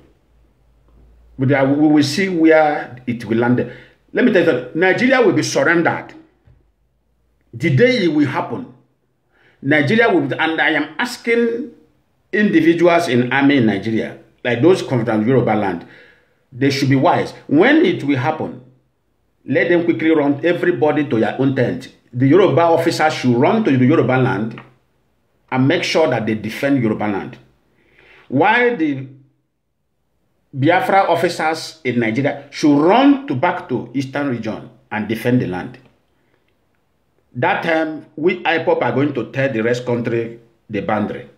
but we will see where it will land. Let me tell you, Nigeria will be surrendered. The day it will happen, Nigeria will be, and I am asking individuals in army in Nigeria, like those come from Yoruba land, they should be wise. When it will happen, let them quickly run everybody to their own tent. The Yoruba officers should run to the Yoruba land and make sure that they defend Yoruba land. While the Biafra officers in Nigeria should run to back to eastern region and defend the land. That time, we IPOP are going to tell the rest country the boundary.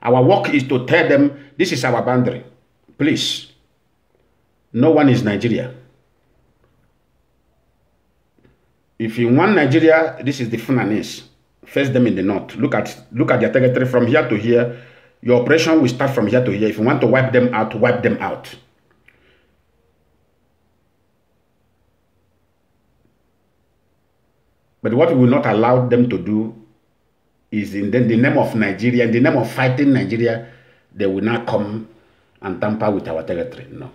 Our work is to tell them, this is our boundary. Please, no one is Nigeria. if you want Nigeria, this is the Fulanese. Face them in the north. Look at look at their territory from here to here. Your operation will start from here to here. If you want to wipe them out, wipe them out. But what we will not allow them to do is in the, the name of Nigeria, in the name of fighting Nigeria, they will not come and tamper with our territory. No.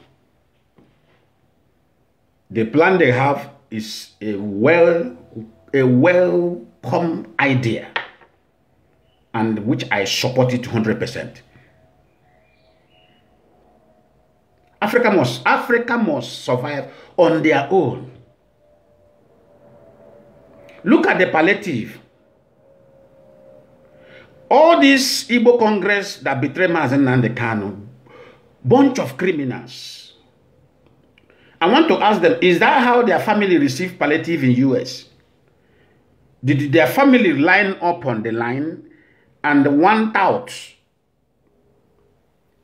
The plan they have is a well a welcome idea and which I support it 100%. Africa must Africa must survive on their own. Look at the palliative. All this Igbo Congress that betrayed Mazen and the Kano, bunch of criminals. I want to ask them, is that how their family received palliative in US? Did their family line up on the line and one out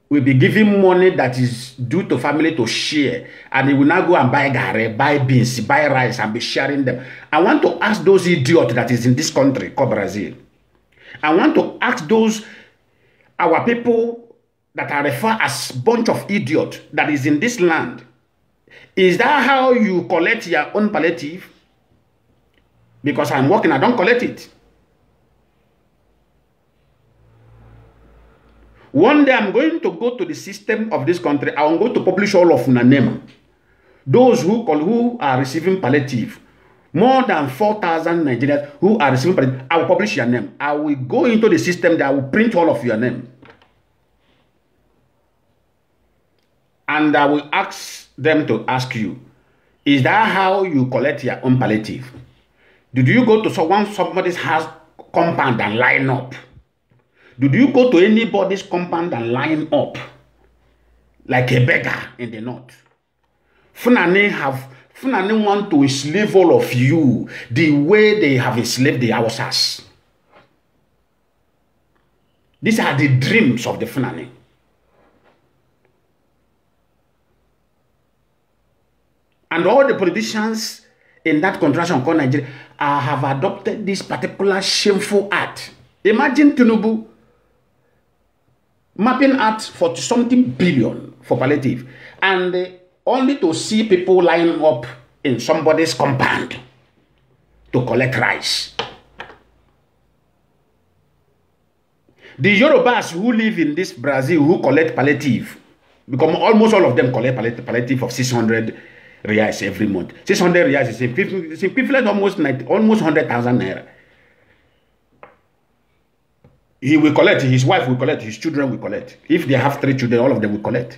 will be given money that is due to family to share and they will now go and buy gare, buy beans, buy rice and be sharing them. I want to ask those idiots that is in this country called Brazil. I want to ask those, our people that are referred as bunch of idiots that is in this land Is that how you collect your own palliative? Because I'm working, I don't collect it. One day I'm going to go to the system of this country. I'm going to publish all of una name. Those who call, who are receiving palliative, more than 4,000 Nigerians who are receiving palliative, I will publish your name. I will go into the system that will print all of your name. And I will ask them to ask you, is that how you collect your own palliative? Did you go to someone somebody's house compound and line up? Did you go to anybody's compound and line up like a beggar in the north? Funani have Funani want to enslave all of you the way they have enslaved the Hausas. These are the dreams of the Funani. And all the politicians in that contraction called Nigeria uh, have adopted this particular shameful act. Imagine Tinubu mapping out for something billion for palliative and uh, only to see people lining up in somebody's compound to collect rice. The Yorubas who live in this Brazil who collect palliative, because almost all of them collect palliative of 600 reais every month. 600 reais is it's equivalent almost 90, almost 100,000 naira. He will collect, his wife will collect, his children will collect. If they have three children, all of them will collect.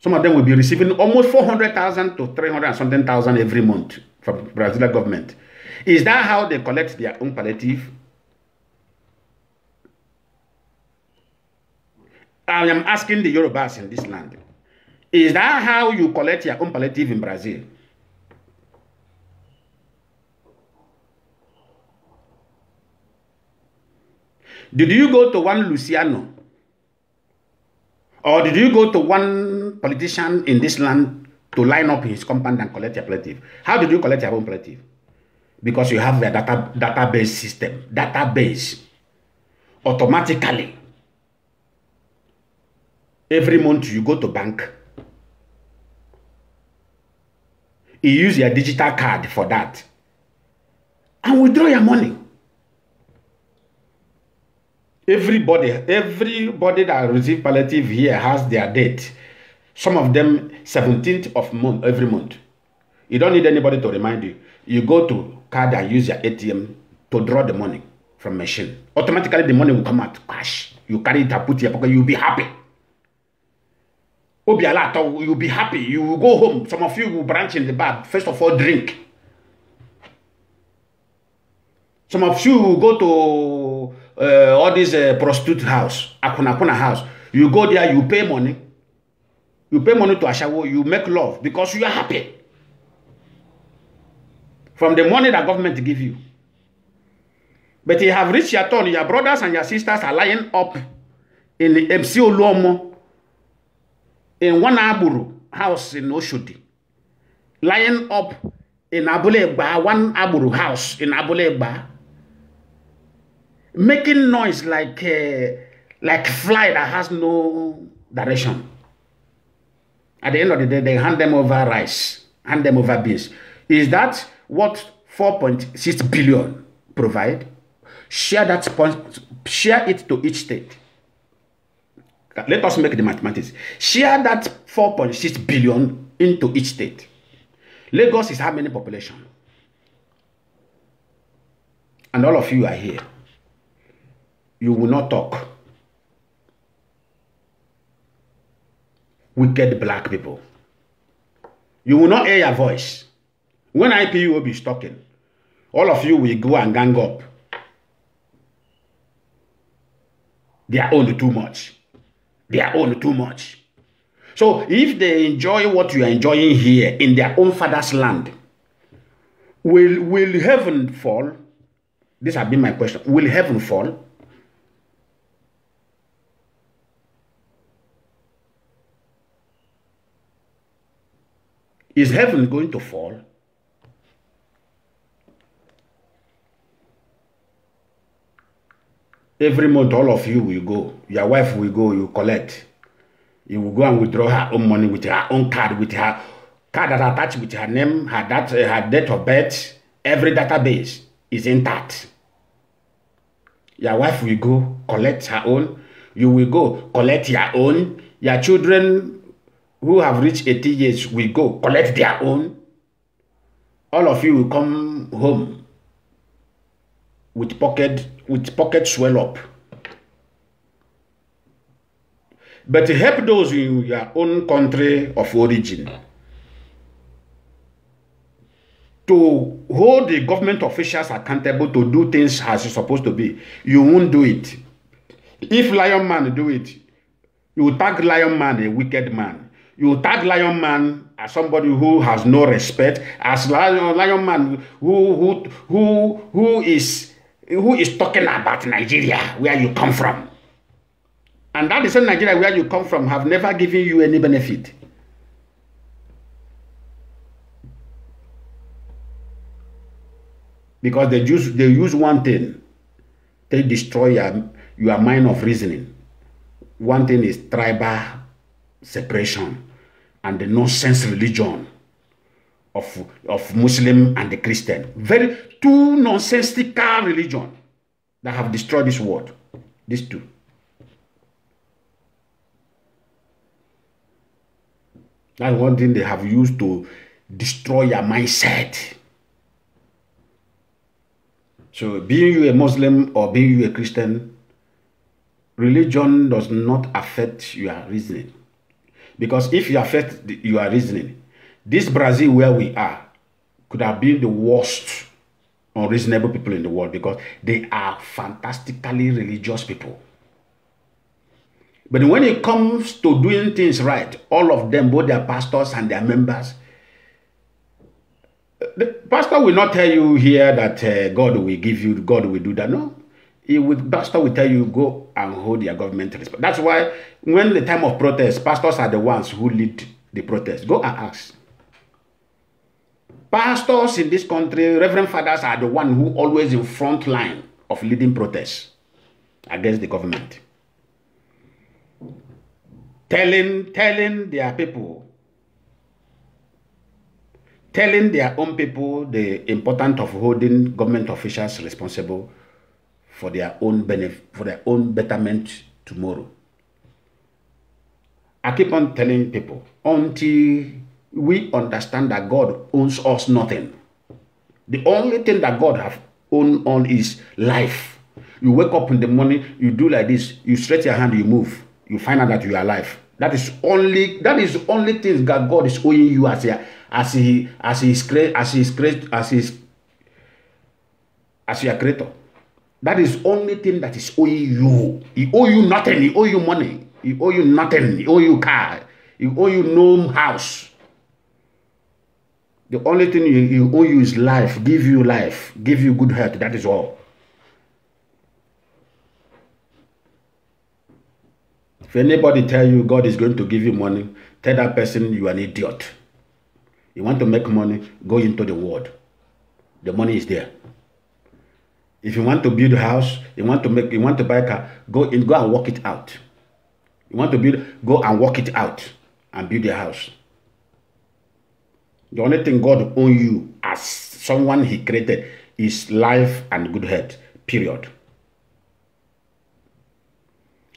Some of them will be receiving almost 400,000 to 300 something thousand every month from Brazilian government. Is that how they collect their own palliative? I am asking the Yorubas in this land. Is that how you collect your own palliative in Brazil? Did you go to one Luciano? Or did you go to one politician in this land to line up his compound and collect your palliative? How did you collect your own palliative? Because you have a data, database system, database. Automatically, every month you go to bank, you use your digital card for that and withdraw your money everybody everybody that receive palliative here has their date some of them 17th of month every month you don't need anybody to remind you you go to card and use your atm to draw the money from machine automatically the money will come out cash you carry it and put it in your pocket you'll be happy obi ala atɔ you be happy you will go home some of you will branch in the bar first of all drink some of you will go to uh, all these uh, prostitute house akunakuna house you go there you pay money you pay money to ashawo you make love because you are happy from the money that government give you but you have reached your turn your brothers and your sisters are lying up in the MC Oluomo in one Wanagburu house in Oshodi, lying up in Abuleba, one Aburu house in Abuleba, making noise like a, uh, like fly that has no direction. At the end of the day, they hand them over rice, hand them over beans. Is that what 4.6 billion provide? Share that point, share it to each state let us make the mathematics share that four point six billion into each state lagos is how many population and all of you are here you will not talk wicked black people you will not hear your voice when will be talking all of you will go and gang up their own too much their own too much. So if they enjoy what you are enjoying here in their own father's land, will, will heaven fall? This has been my question. Will heaven fall? Is heaven going to fall? every month all of you will go your wife will go you collect you will go and withdraw her own money with her own card with her card that attached with her name her that, eh, her date of birth every database is intact your wife will go collect her own you will go collect your own your children who have reached 80 years will go collect their own all of you will come home with pocket with pocket swell up. But help those in your own country of origin to hold the government officials accountable to do things as it's supposed to be. You won't do it. If Lion Man do it, you tag Lion Man a wicked man. You tag Lion Man as somebody who has no respect, as Lion, Lion Man who, who, who, who is who is talking about Nigeria, where you come from. And that is same Nigeria where you come from have never given you any benefit. Because they use, they use one thing. They destroy your, your mind of reasoning. One thing is tribal separation and the nonsense religion of, of Muslim and the Christian. Very two nonsensical religion that have destroyed this world. These two. That's one thing they have used to destroy your mindset. So being you a Muslim or being you a Christian, religion does not affect your reasoning. Because if you affect your reasoning, this Brazil, where we are, could have been the worst unreasonable people in the world because they are fantastically religious people. But when it comes to doing things right, all of them, both their pastors and their members, the pastor will not tell you here that uh, God will give you, God will do that. No. He will, pastor will tell you, go and hold your government responsible. That's why when the time of protest, pastors are the ones who lead the protest. Go and ask. Pastors in this country, reverend fathers are the one who always in front line of leading protests against the government. Telling, telling their people, telling their own people the importance of holding government officials responsible for their own benefit, for their own betterment tomorrow. I keep on telling people until we understand that God owns us nothing. The only thing that God have owned on is life. You wake up in the morning, you do like this, you stretch your hand, you move, you find out that you are alive. That is only that is only thing that God is owing you as a, as he as he is create as he is create as he is as your creator. That is only thing that is owing you. He owe you nothing. He owe you money. He owe you nothing. He owe you car. He owe you no house. The only thing you, you owe you is life, give you life, give you good health. That is all. If anybody tell you God is going to give you money, tell that person you are an idiot. You want to make money, go into the world. The money is there. If you want to build a house, you want to make, you want to buy a car, go in, go and work it out. You want to build, go and work it out and build a house. The only thing God own you as someone he created is life and good health, period.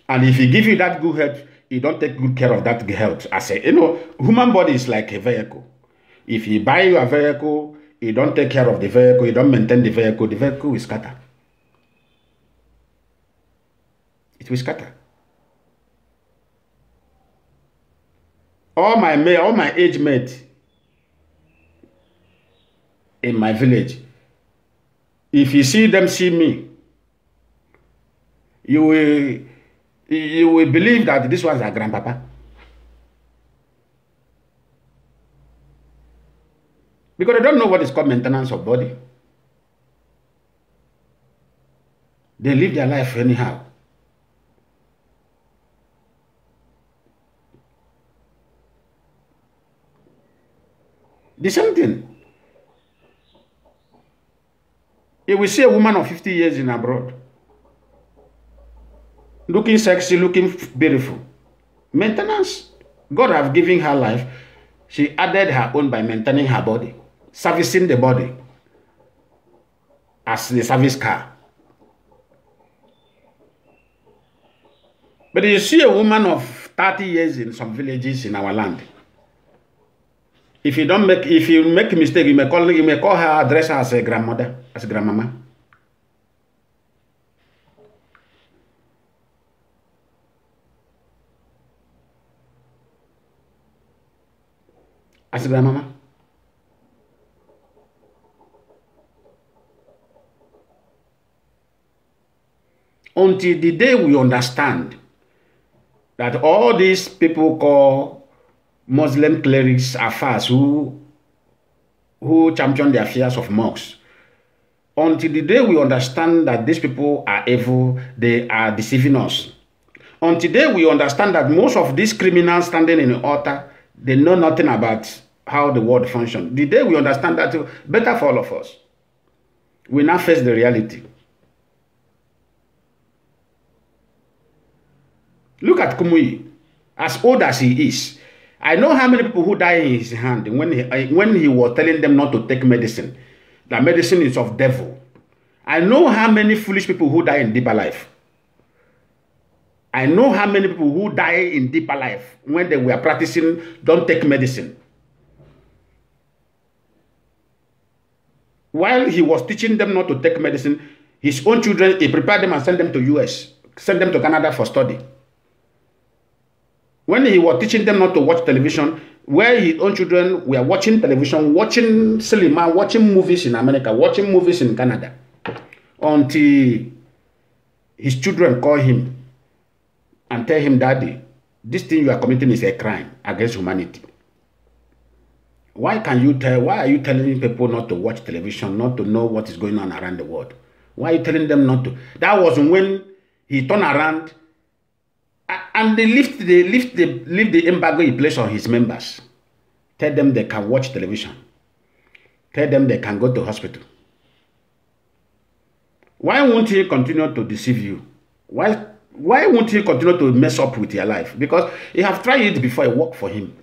And if he give you that good health, he don't take good care of that health. I say, you know, human body is like a vehicle. If he buy you a vehicle, you don't take care of the vehicle, You don't maintain the vehicle, the vehicle will scatter. It will scatter. All my all my age mate. in my village. If you see them see me, you will, you will believe that this was our grandpapa. Because they don't know what is called maintenance of body. They live their life anyhow. The same thing. You will see a woman of 50 years in abroad. Looking sexy, looking beautiful. Maintenance. God have given her life. She added her own by maintaining her body. Servicing the body. As the service car. But you see a woman of 30 years in some villages in our land if you don't make if you make mistake you may call you may call her address as a grandmother as a grandmama as a grandmama until the day we understand that all these people call Muslim clerics are fast who who champion the affairs of monks. Until the day we understand that these people are evil, they are deceiving us. Until today we understand that most of these criminals standing in the altar, they know nothing about how the world functions. The day we understand that, better for all of us. We now face the reality. Look at Kumuyi, as old as he is, I know how many people who die in his hand when he, when he was telling them not to take medicine, that medicine is of devil. I know how many foolish people who die in deeper life. I know how many people who die in deeper life when they were practicing don't take medicine. While he was teaching them not to take medicine, his own children, he prepared them and sent them to US, sent them to Canada for study. when he was teaching them not to watch television, where his own children were watching television, watching cinema, watching movies in America, watching movies in Canada, until his children call him and tell him, Daddy, this thing you are committing is a crime against humanity. Why can you tell? Why are you telling people not to watch television, not to know what is going on around the world? Why are you telling them not to? That was when he turned around And they lift the lift the lift the embargo in place on his members. Tell them they can watch television. Tell them they can go to hospital. Why won't he continue to deceive you? Why why won't he continue to mess up with your life? Because you have tried it before it worked for him.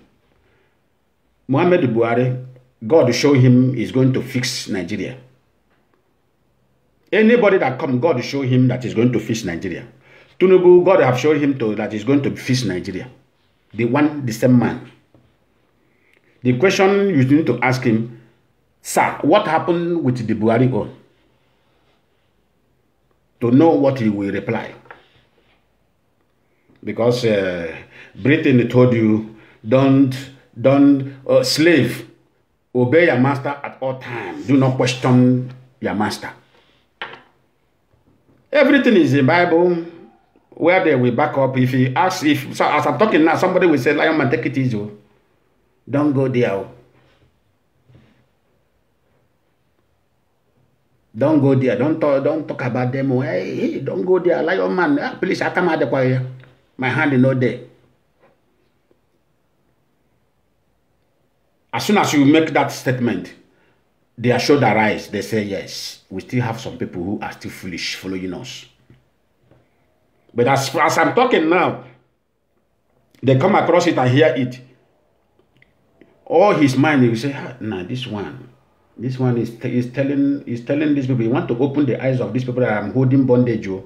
Mohammed Buhari, God show him is going to fix Nigeria. Anybody that come, God show him that he's going to fix Nigeria. Tunubu, God have showed him to, that he's going to fix Nigeria. The one, the same man. The question you need to ask him, sir, what happened with the Buhari on? To know what he will reply. Because uh, Britain told you, don't, don't, uh, slave, obey your master at all times. Do not question your master. Everything is in Bible where they will back up. If he asks, if so as I'm talking now, somebody will say, Lion man, take it easy. Oh. Don't go there. Oh. Don't go there. Don't talk, don't talk about them. Oh. Hey, hey, don't go there. Lion man, ah, please, I come out the choir. My hand is not there. As soon as you make that statement, they are sure their eyes. They say, yes, we still have some people who are still foolish following us. But as, as I'm talking now, they come across it and hear it. All his mind, he will say, ah, nah, this one, this one is, is telling is telling these people, He want to open the eyes of these people that I'm holding bondage, oh.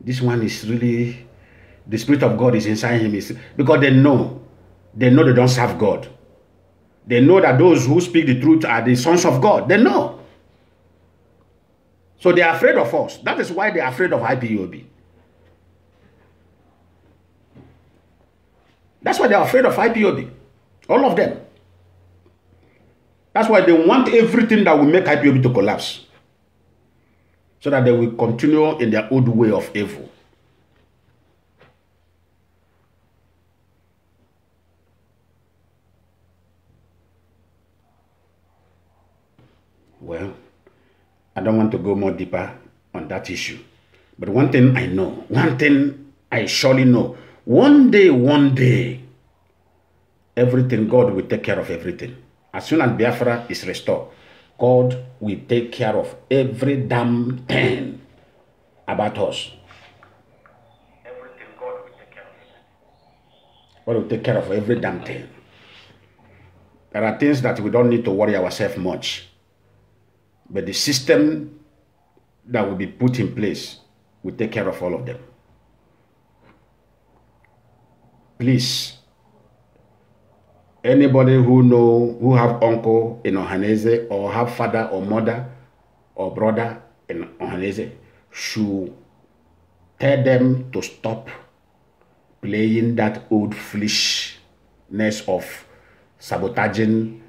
This one is really, the Spirit of God is inside him. It's, because they know, they know they don't serve God. They know that those who speak the truth are the sons of God. They know. So they are afraid of us. That is why they are afraid of IPOB. That's why they are afraid of IPOB. All of them. That's why they want everything that will make IPOB to collapse. So that they will continue in their old way of evil. Well, I don't want to go more deeper on that issue. But one thing I know, one thing I surely know, One day, one day, everything, God will take care of everything. As soon as Biafra is restored, God will take care of every damn thing about us. Everything God will take care of. God will take care of every damn thing. There are things that we don't need to worry ourselves much. But the system that will be put in place will take care of all of them please anybody who know who have uncle in Ohanese or have father or mother or brother in Ohanese should tell them to stop playing that old foolishness of sabotaging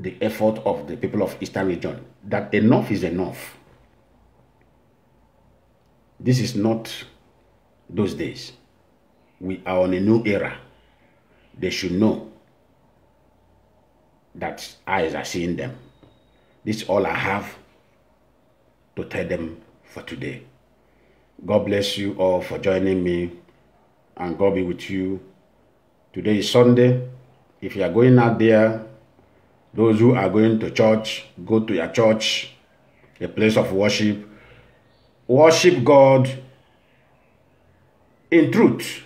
the effort of the people of Eastern region. That enough is enough. This is not those days we are on a new era. They should know that eyes are seeing them. This is all I have to tell them for today. God bless you all for joining me and God be with you. Today is Sunday. If you are going out there, those who are going to church, go to your church, a place of worship. Worship God in truth.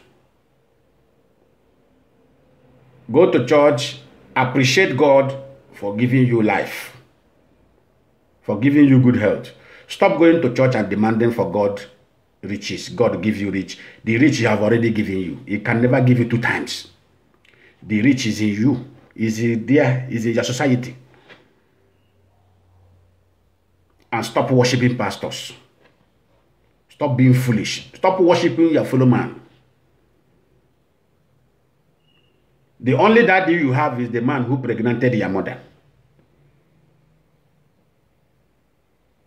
Go to church, appreciate God for giving you life, for giving you good health. Stop going to church and demanding for God riches. God give you rich. The rich he have already given you. He can never give you two times. The rich is in you, is it there, is in your society. And stop worshiping pastors. Stop being foolish. Stop worshiping your fellow man. The only daddy you have is the man who pregnanted your mother.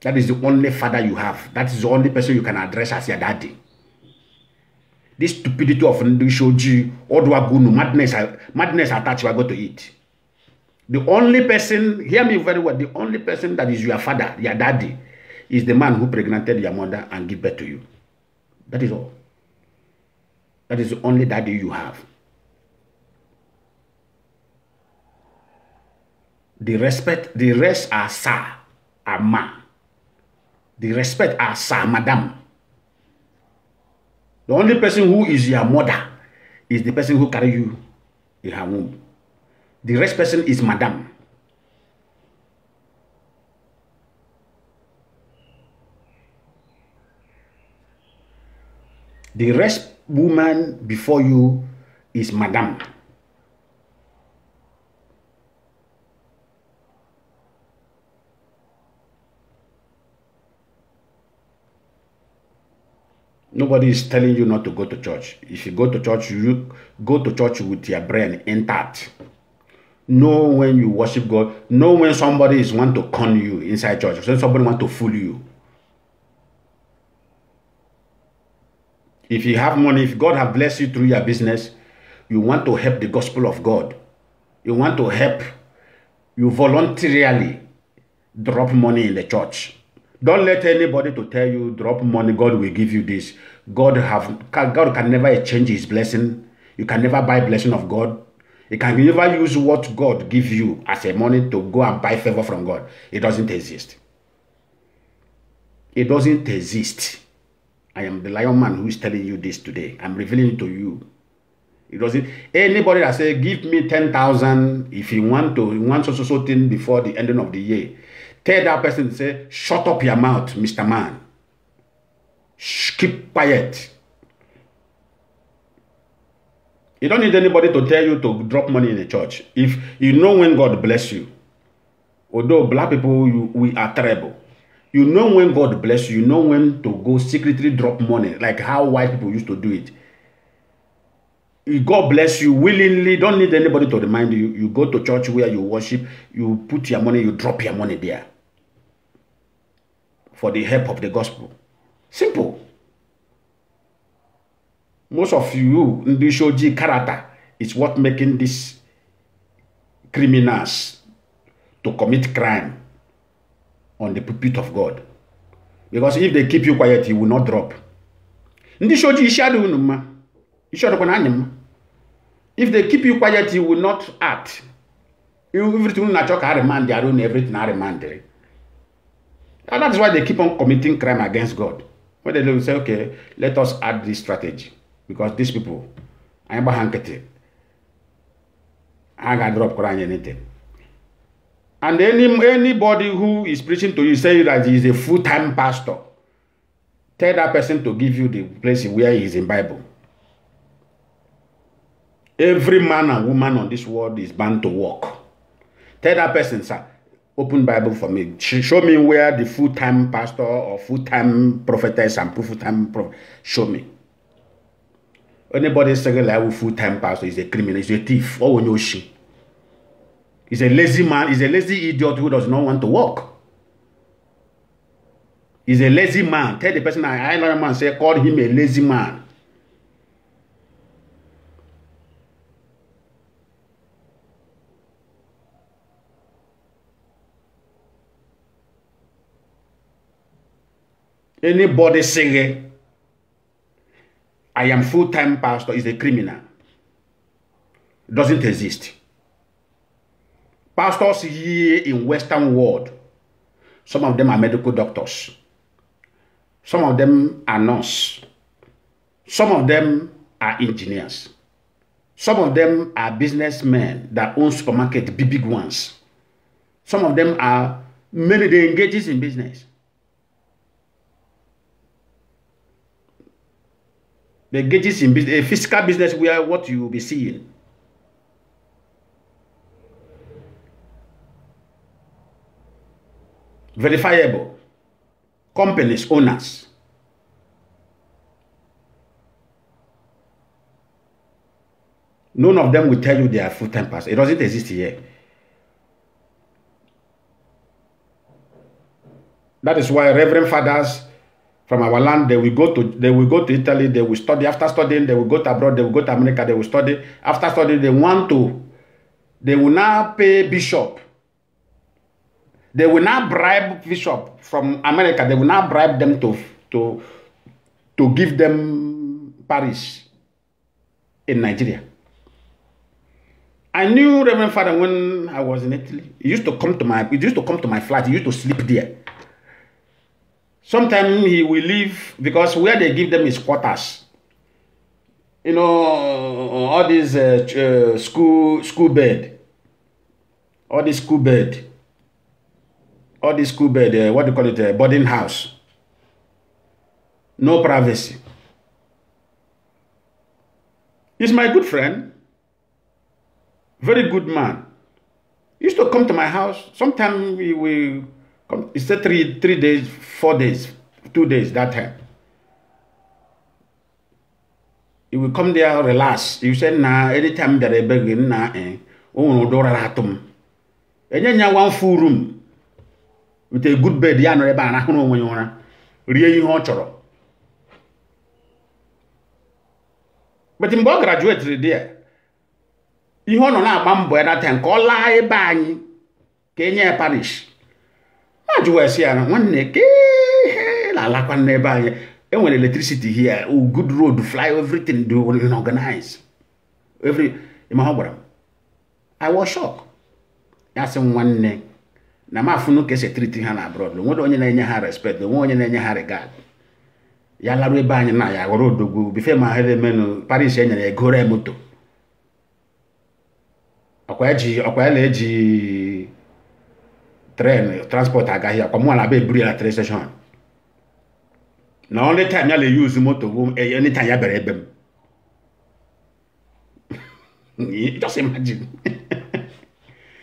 That is the only father you have. That is the only person you can address as your daddy. This stupidity of Ndishoji, Odwagunu, madness, madness attached you are going to eat. The only person, hear me very well, the only person that is your father, your daddy, is the man who pregnanted your mother and gave birth to you. That is all. That is the only daddy you have. The respect, the rest are sir, are ma. The respect are sir, madam. The only person who is your mother is the person who carry you in her womb. The rest person is madam. The rest woman before you is madam. Nobody is telling you not to go to church. If you go to church, you go to church with your brain intact. Know when you worship God. Know when somebody is want to con you inside church. When somebody want to fool you. If you have money, if God have blessed you through your business, you want to help the gospel of God. You want to help. You voluntarily drop money in the church Don't let anybody to tell you drop money, God will give you this. God have God can never change his blessing. You can never buy blessing of God. You can never use what God give you as a money to go and buy favor from God. It doesn't exist. It doesn't exist. I am the lion man who is telling you this today. I'm revealing it to you. It doesn't anybody that say give me ten thousand if you want to you want so so so thing before the ending of the year Tell that person, say, shut up your mouth, Mr. Man. Shh, keep quiet. You don't need anybody to tell you to drop money in a church. If you know when God bless you, although black people, you, we are terrible. You know when God bless you, you know when to go secretly drop money, like how white people used to do it. God bless you willingly. Don't need anybody to remind you. You go to church where you worship, you put your money, you drop your money there for the help of the gospel. Simple. Most of you, shoji character is what making these criminals to commit crime on the pulpit of God. Because if they keep you quiet, you will not drop. Ndishoji ishaduunuma. If they keep you quiet, you will not act. You, everything na chok remand their own, everything are remand. And that's why they keep on committing crime against God. When they will say, okay, let us add this strategy. Because these people, I am hankete. I can drop Quran anything. And any, anybody who is preaching to you, say that he is a full-time pastor, tell that person to give you the place where he is in Bible. Every man and woman on this world is bound to work. Tell that person, sir, open Bible for me. Show me where the full-time pastor or full-time prophetess and full-time prophet. Show me. Anybody second level oh, full-time pastor is a criminal, is a thief, Oh no, she. He's a lazy man, he's a lazy idiot who does not want to work. He's a lazy man. Tell the person I, I know a man, say, call him a lazy man. Anybody saying, I am full-time pastor is a criminal. Doesn't exist. Pastors here in Western world, some of them are medical doctors. Some of them are nurses. Some of them are engineers. Some of them are businessmen that own supermarket, big, big ones. Some of them are, many they engages in business. The gauges in a physical business where what you will be seeing. Verifiable. Companies, owners. None of them will tell you they are full-time pastors. It doesn't exist here. That is why Reverend Fathers from our land they will go to they will go to italy they will study after studying they will go to abroad they will go to america they will study after studying they want to they will now pay bishop they will now bribe bishop from america they will now bribe them to to to give them parish in nigeria i knew reverend father when i was in italy he used to come to my he used to come to my flat he used to sleep there Sometimes he will leave because where they give them is quarters. You know, all these uh, uh, school school bed, all this school bed, all this school bed. Uh, what do you call it? Uh, boarding house. No privacy. He's my good friend. Very good man. He used to come to my house. Sometimes we will Um, He said three, three days, four days, two days that time. He will come there, relax. You say, nah, anytime that I begin, nah, eh, oh, no, door atom. And then one full room with a good bed, ya no, ebe eh, n'o n'onwe ya ụra, rie ihe ọ chọrọ. But mgbe ọ graduate there, ihe ọ nọ na-agba mbọ ya that time ka ọ laa ebe anyị ka enye ya parish. ajụ wee sị ya na nwanne ka ihe na-alakwa n'ebe anyị enwere electricity here good road fly everything do organize every ma ọ gwara m i was shock ya sị nwanne na m afụnụ ka esi triti ha na abroad onwere onye na-enye ha respect onwe onye na-enye ha regard ya larụ ebe anyị na ya ghọrọ odogwu bife ma ha paris enyere egoro moto ọkwa ya e tren transport agaghị akwa mụ na be eburu ya na station na only time ya na use motor bụ anytime ya bịara ebe m just imagine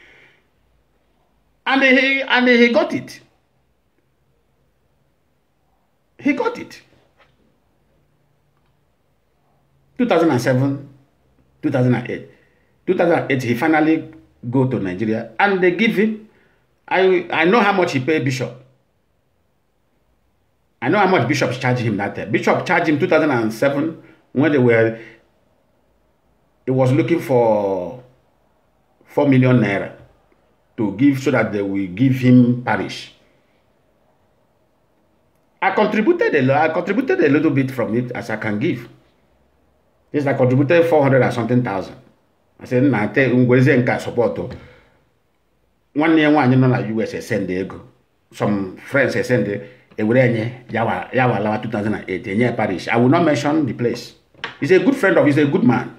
and he and he got it he got it 2007 2008 2008 he finally go to Nigeria and they give him I, I know how much he paid Bishop. I know how much Bishop charged him that time. Bishop charged him 2007 when they were, he was looking for 4 million naira to give so that they will give him parish. I contributed a I contributed a little bit from it as I can give. Yes, I contributed 400 and something thousand. I said, nah, I tell you, support nwanne ya nwaanyị nọ na US esend ego some friends esend ewere enye yawa yawa lawa 2008 enye parish i will not mention the place he's a good friend of he's a good man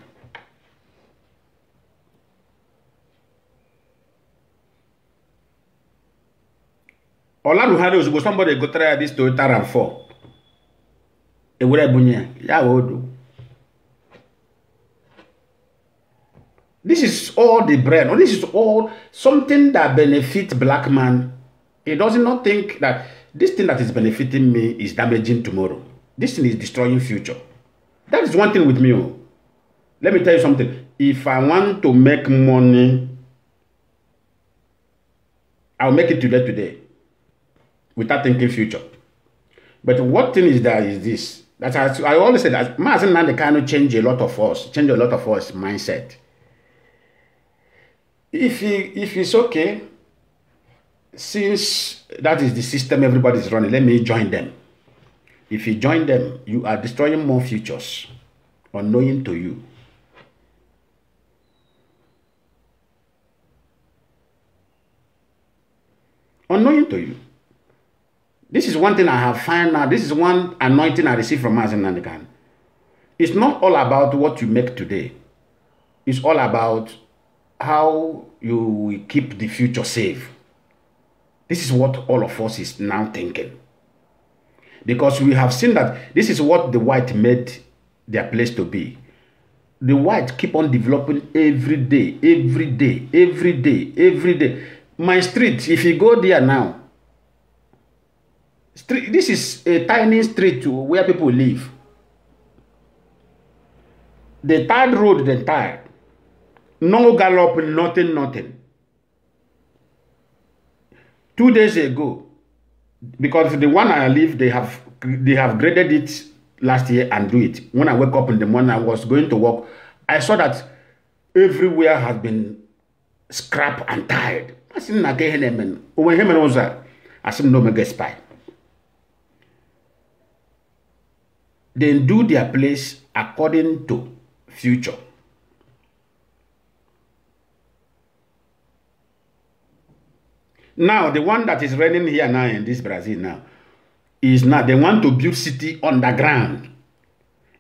olaruhari ozugbo somebody gotere ya this Toyota RAV4 ewere bunye ya wee odo This is all the bread, Or this is all something that benefits black man. He does not think that this thing that is benefiting me is damaging tomorrow. This thing is destroying future. That is one thing with me. Oh. Let me tell you something. If I want to make money, I'll make it today today without thinking future. But what thing is that is this? That I, always say that Mazen Nandekano change a lot of us, change a lot of us mindset if he if it's okay since that is the system everybody is running let me join them if you join them you are destroying more futures unknowing to you unknowing to you this is one thing i have found now this is one anointing i received from Mazen Nandikan it's not all about what you make today it's all about how you will keep the future safe. This is what all of us is now thinking. Because we have seen that this is what the white made their place to be. The white keep on developing every day, every day, every day, every day. My street, if you go there now, street, this is a tiny street where people live. The third road, the third, No gallop, nothing, nothing. Two days ago, because the one I live, they have they have graded it last year and do it. When I wake up in the morning, I was going to work. I saw that everywhere has been scrap and tired. I said, "Nage henemen." Owe hemen oza. I said, "No mega spy." Then do their place according to future. Now, the one that is running here now in this Brazil now is now they want to build city underground.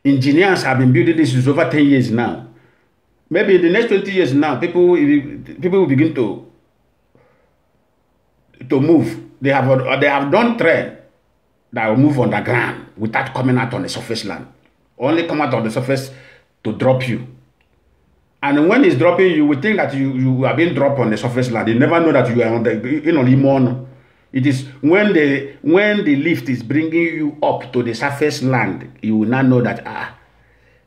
Engineers have been building this over 10 years now. Maybe in the next 20 years now, people people will begin to to move. They have they have done trade that will move underground without coming out on the surface land. Only come out on the surface to drop you. And when it's dropping, you will think that you, you are being dropped on the surface land. You never know that you are on the you know limon. It is when the when the lift is bringing you up to the surface land, you will not know that ah.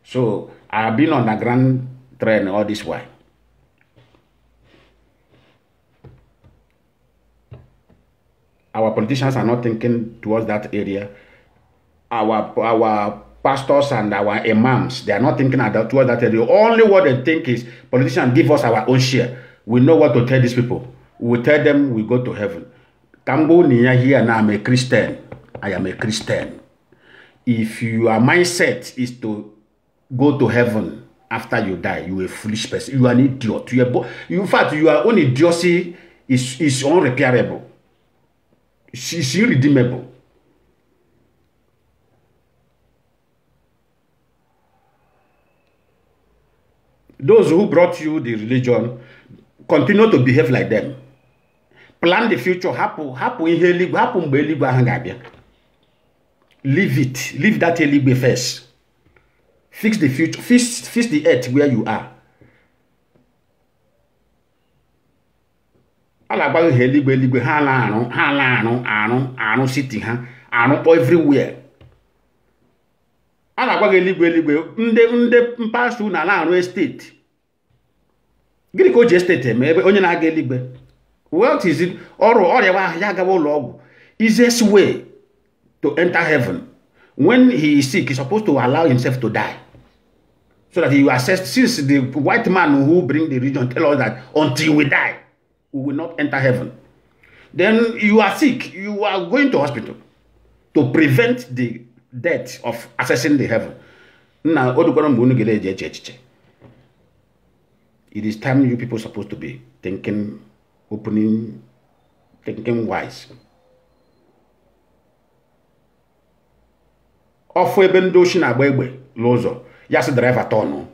So I've been on the grand train all this way. Our politicians are not thinking towards that area. Our our pastors and our imams. They are not thinking about towards that. The only what they think is politicians give us our own share. We know what to tell these people. We tell them we go to heaven. Kambo Nia here now I'm a Christian. I am a Christian. If your mindset is to go to heaven after you die, you a foolish person. You are an idiot. You are in fact, your own idiocy is, is unrepairable. It's, it's irredeemable. those who brought you the religion continue to behave like them plan the future hapụ hapụ ihe eluigwe hapụ mgbe eluigwe ahụ ga-abịa leave it leave that eluigwe first fix the future fix, fix the earth where you are a na-agba ihe eluigwe eluigwe ha na-arụ ha na-arụ arụ arụ city ha arụkpọ everywhere a na-agwa gị eluigwe eluigwe ndị ndị mpaghara na na-arụ esteti gịnị ka o ji esteti eme ebe onye na-aga eluigwe wealth is ọrụ ọrịa ahụ ya agawa ụlọ ọgwụ easiest way to enter heaven when he is sick he is supposed to allow himself to die so that he will assess since the white man who bring the region tell us that until we die we will not enter heaven then you are sick you are going to hospital to prevent the death of accessing the heaven nna o dukwara mgbe unu ga-eji eche echiche it is time you people supposed to be thinking opening thinking wise ọfụ ebe ndị ochi na-agba egbe n'ụzọ ya sị driver turn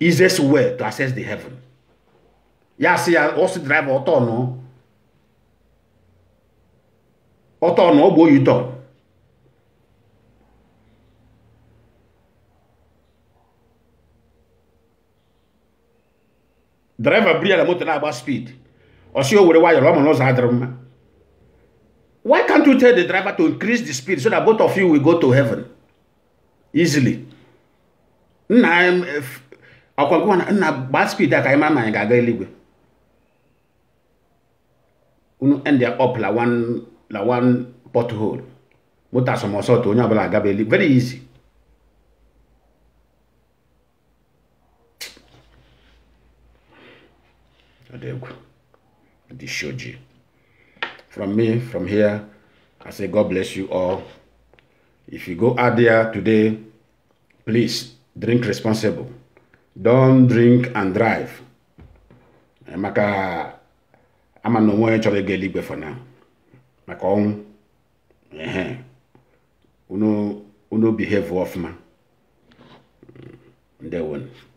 easiest way to access the heaven ya si ya ọ driver ọtọ nụ ọtọ ọ bụ oyi turn draiva buru ya na moto na-agba speed ọsị o were wayọrọ ọ ma n'ụzọ adịrị mma why can't you tell the driver to increase the speed so that both of you will go to heaven easily nna ọkwa eh, gwa na nna gbaa speed a ka anyị mara na anyị ga-aga eluigwe unu end up la one la one pothole moto asọmọsọ onye ọbụla agaba eluigwe very easy the shoji. From me, from here, I say God bless you all. If you go out there today, please drink responsible. Don't drink and drive. Maka, I'm no more chọrọ ịga eluigwe for now. Maka ọnwụ, ehe, unu unu behave ọfụma. Ndewonu.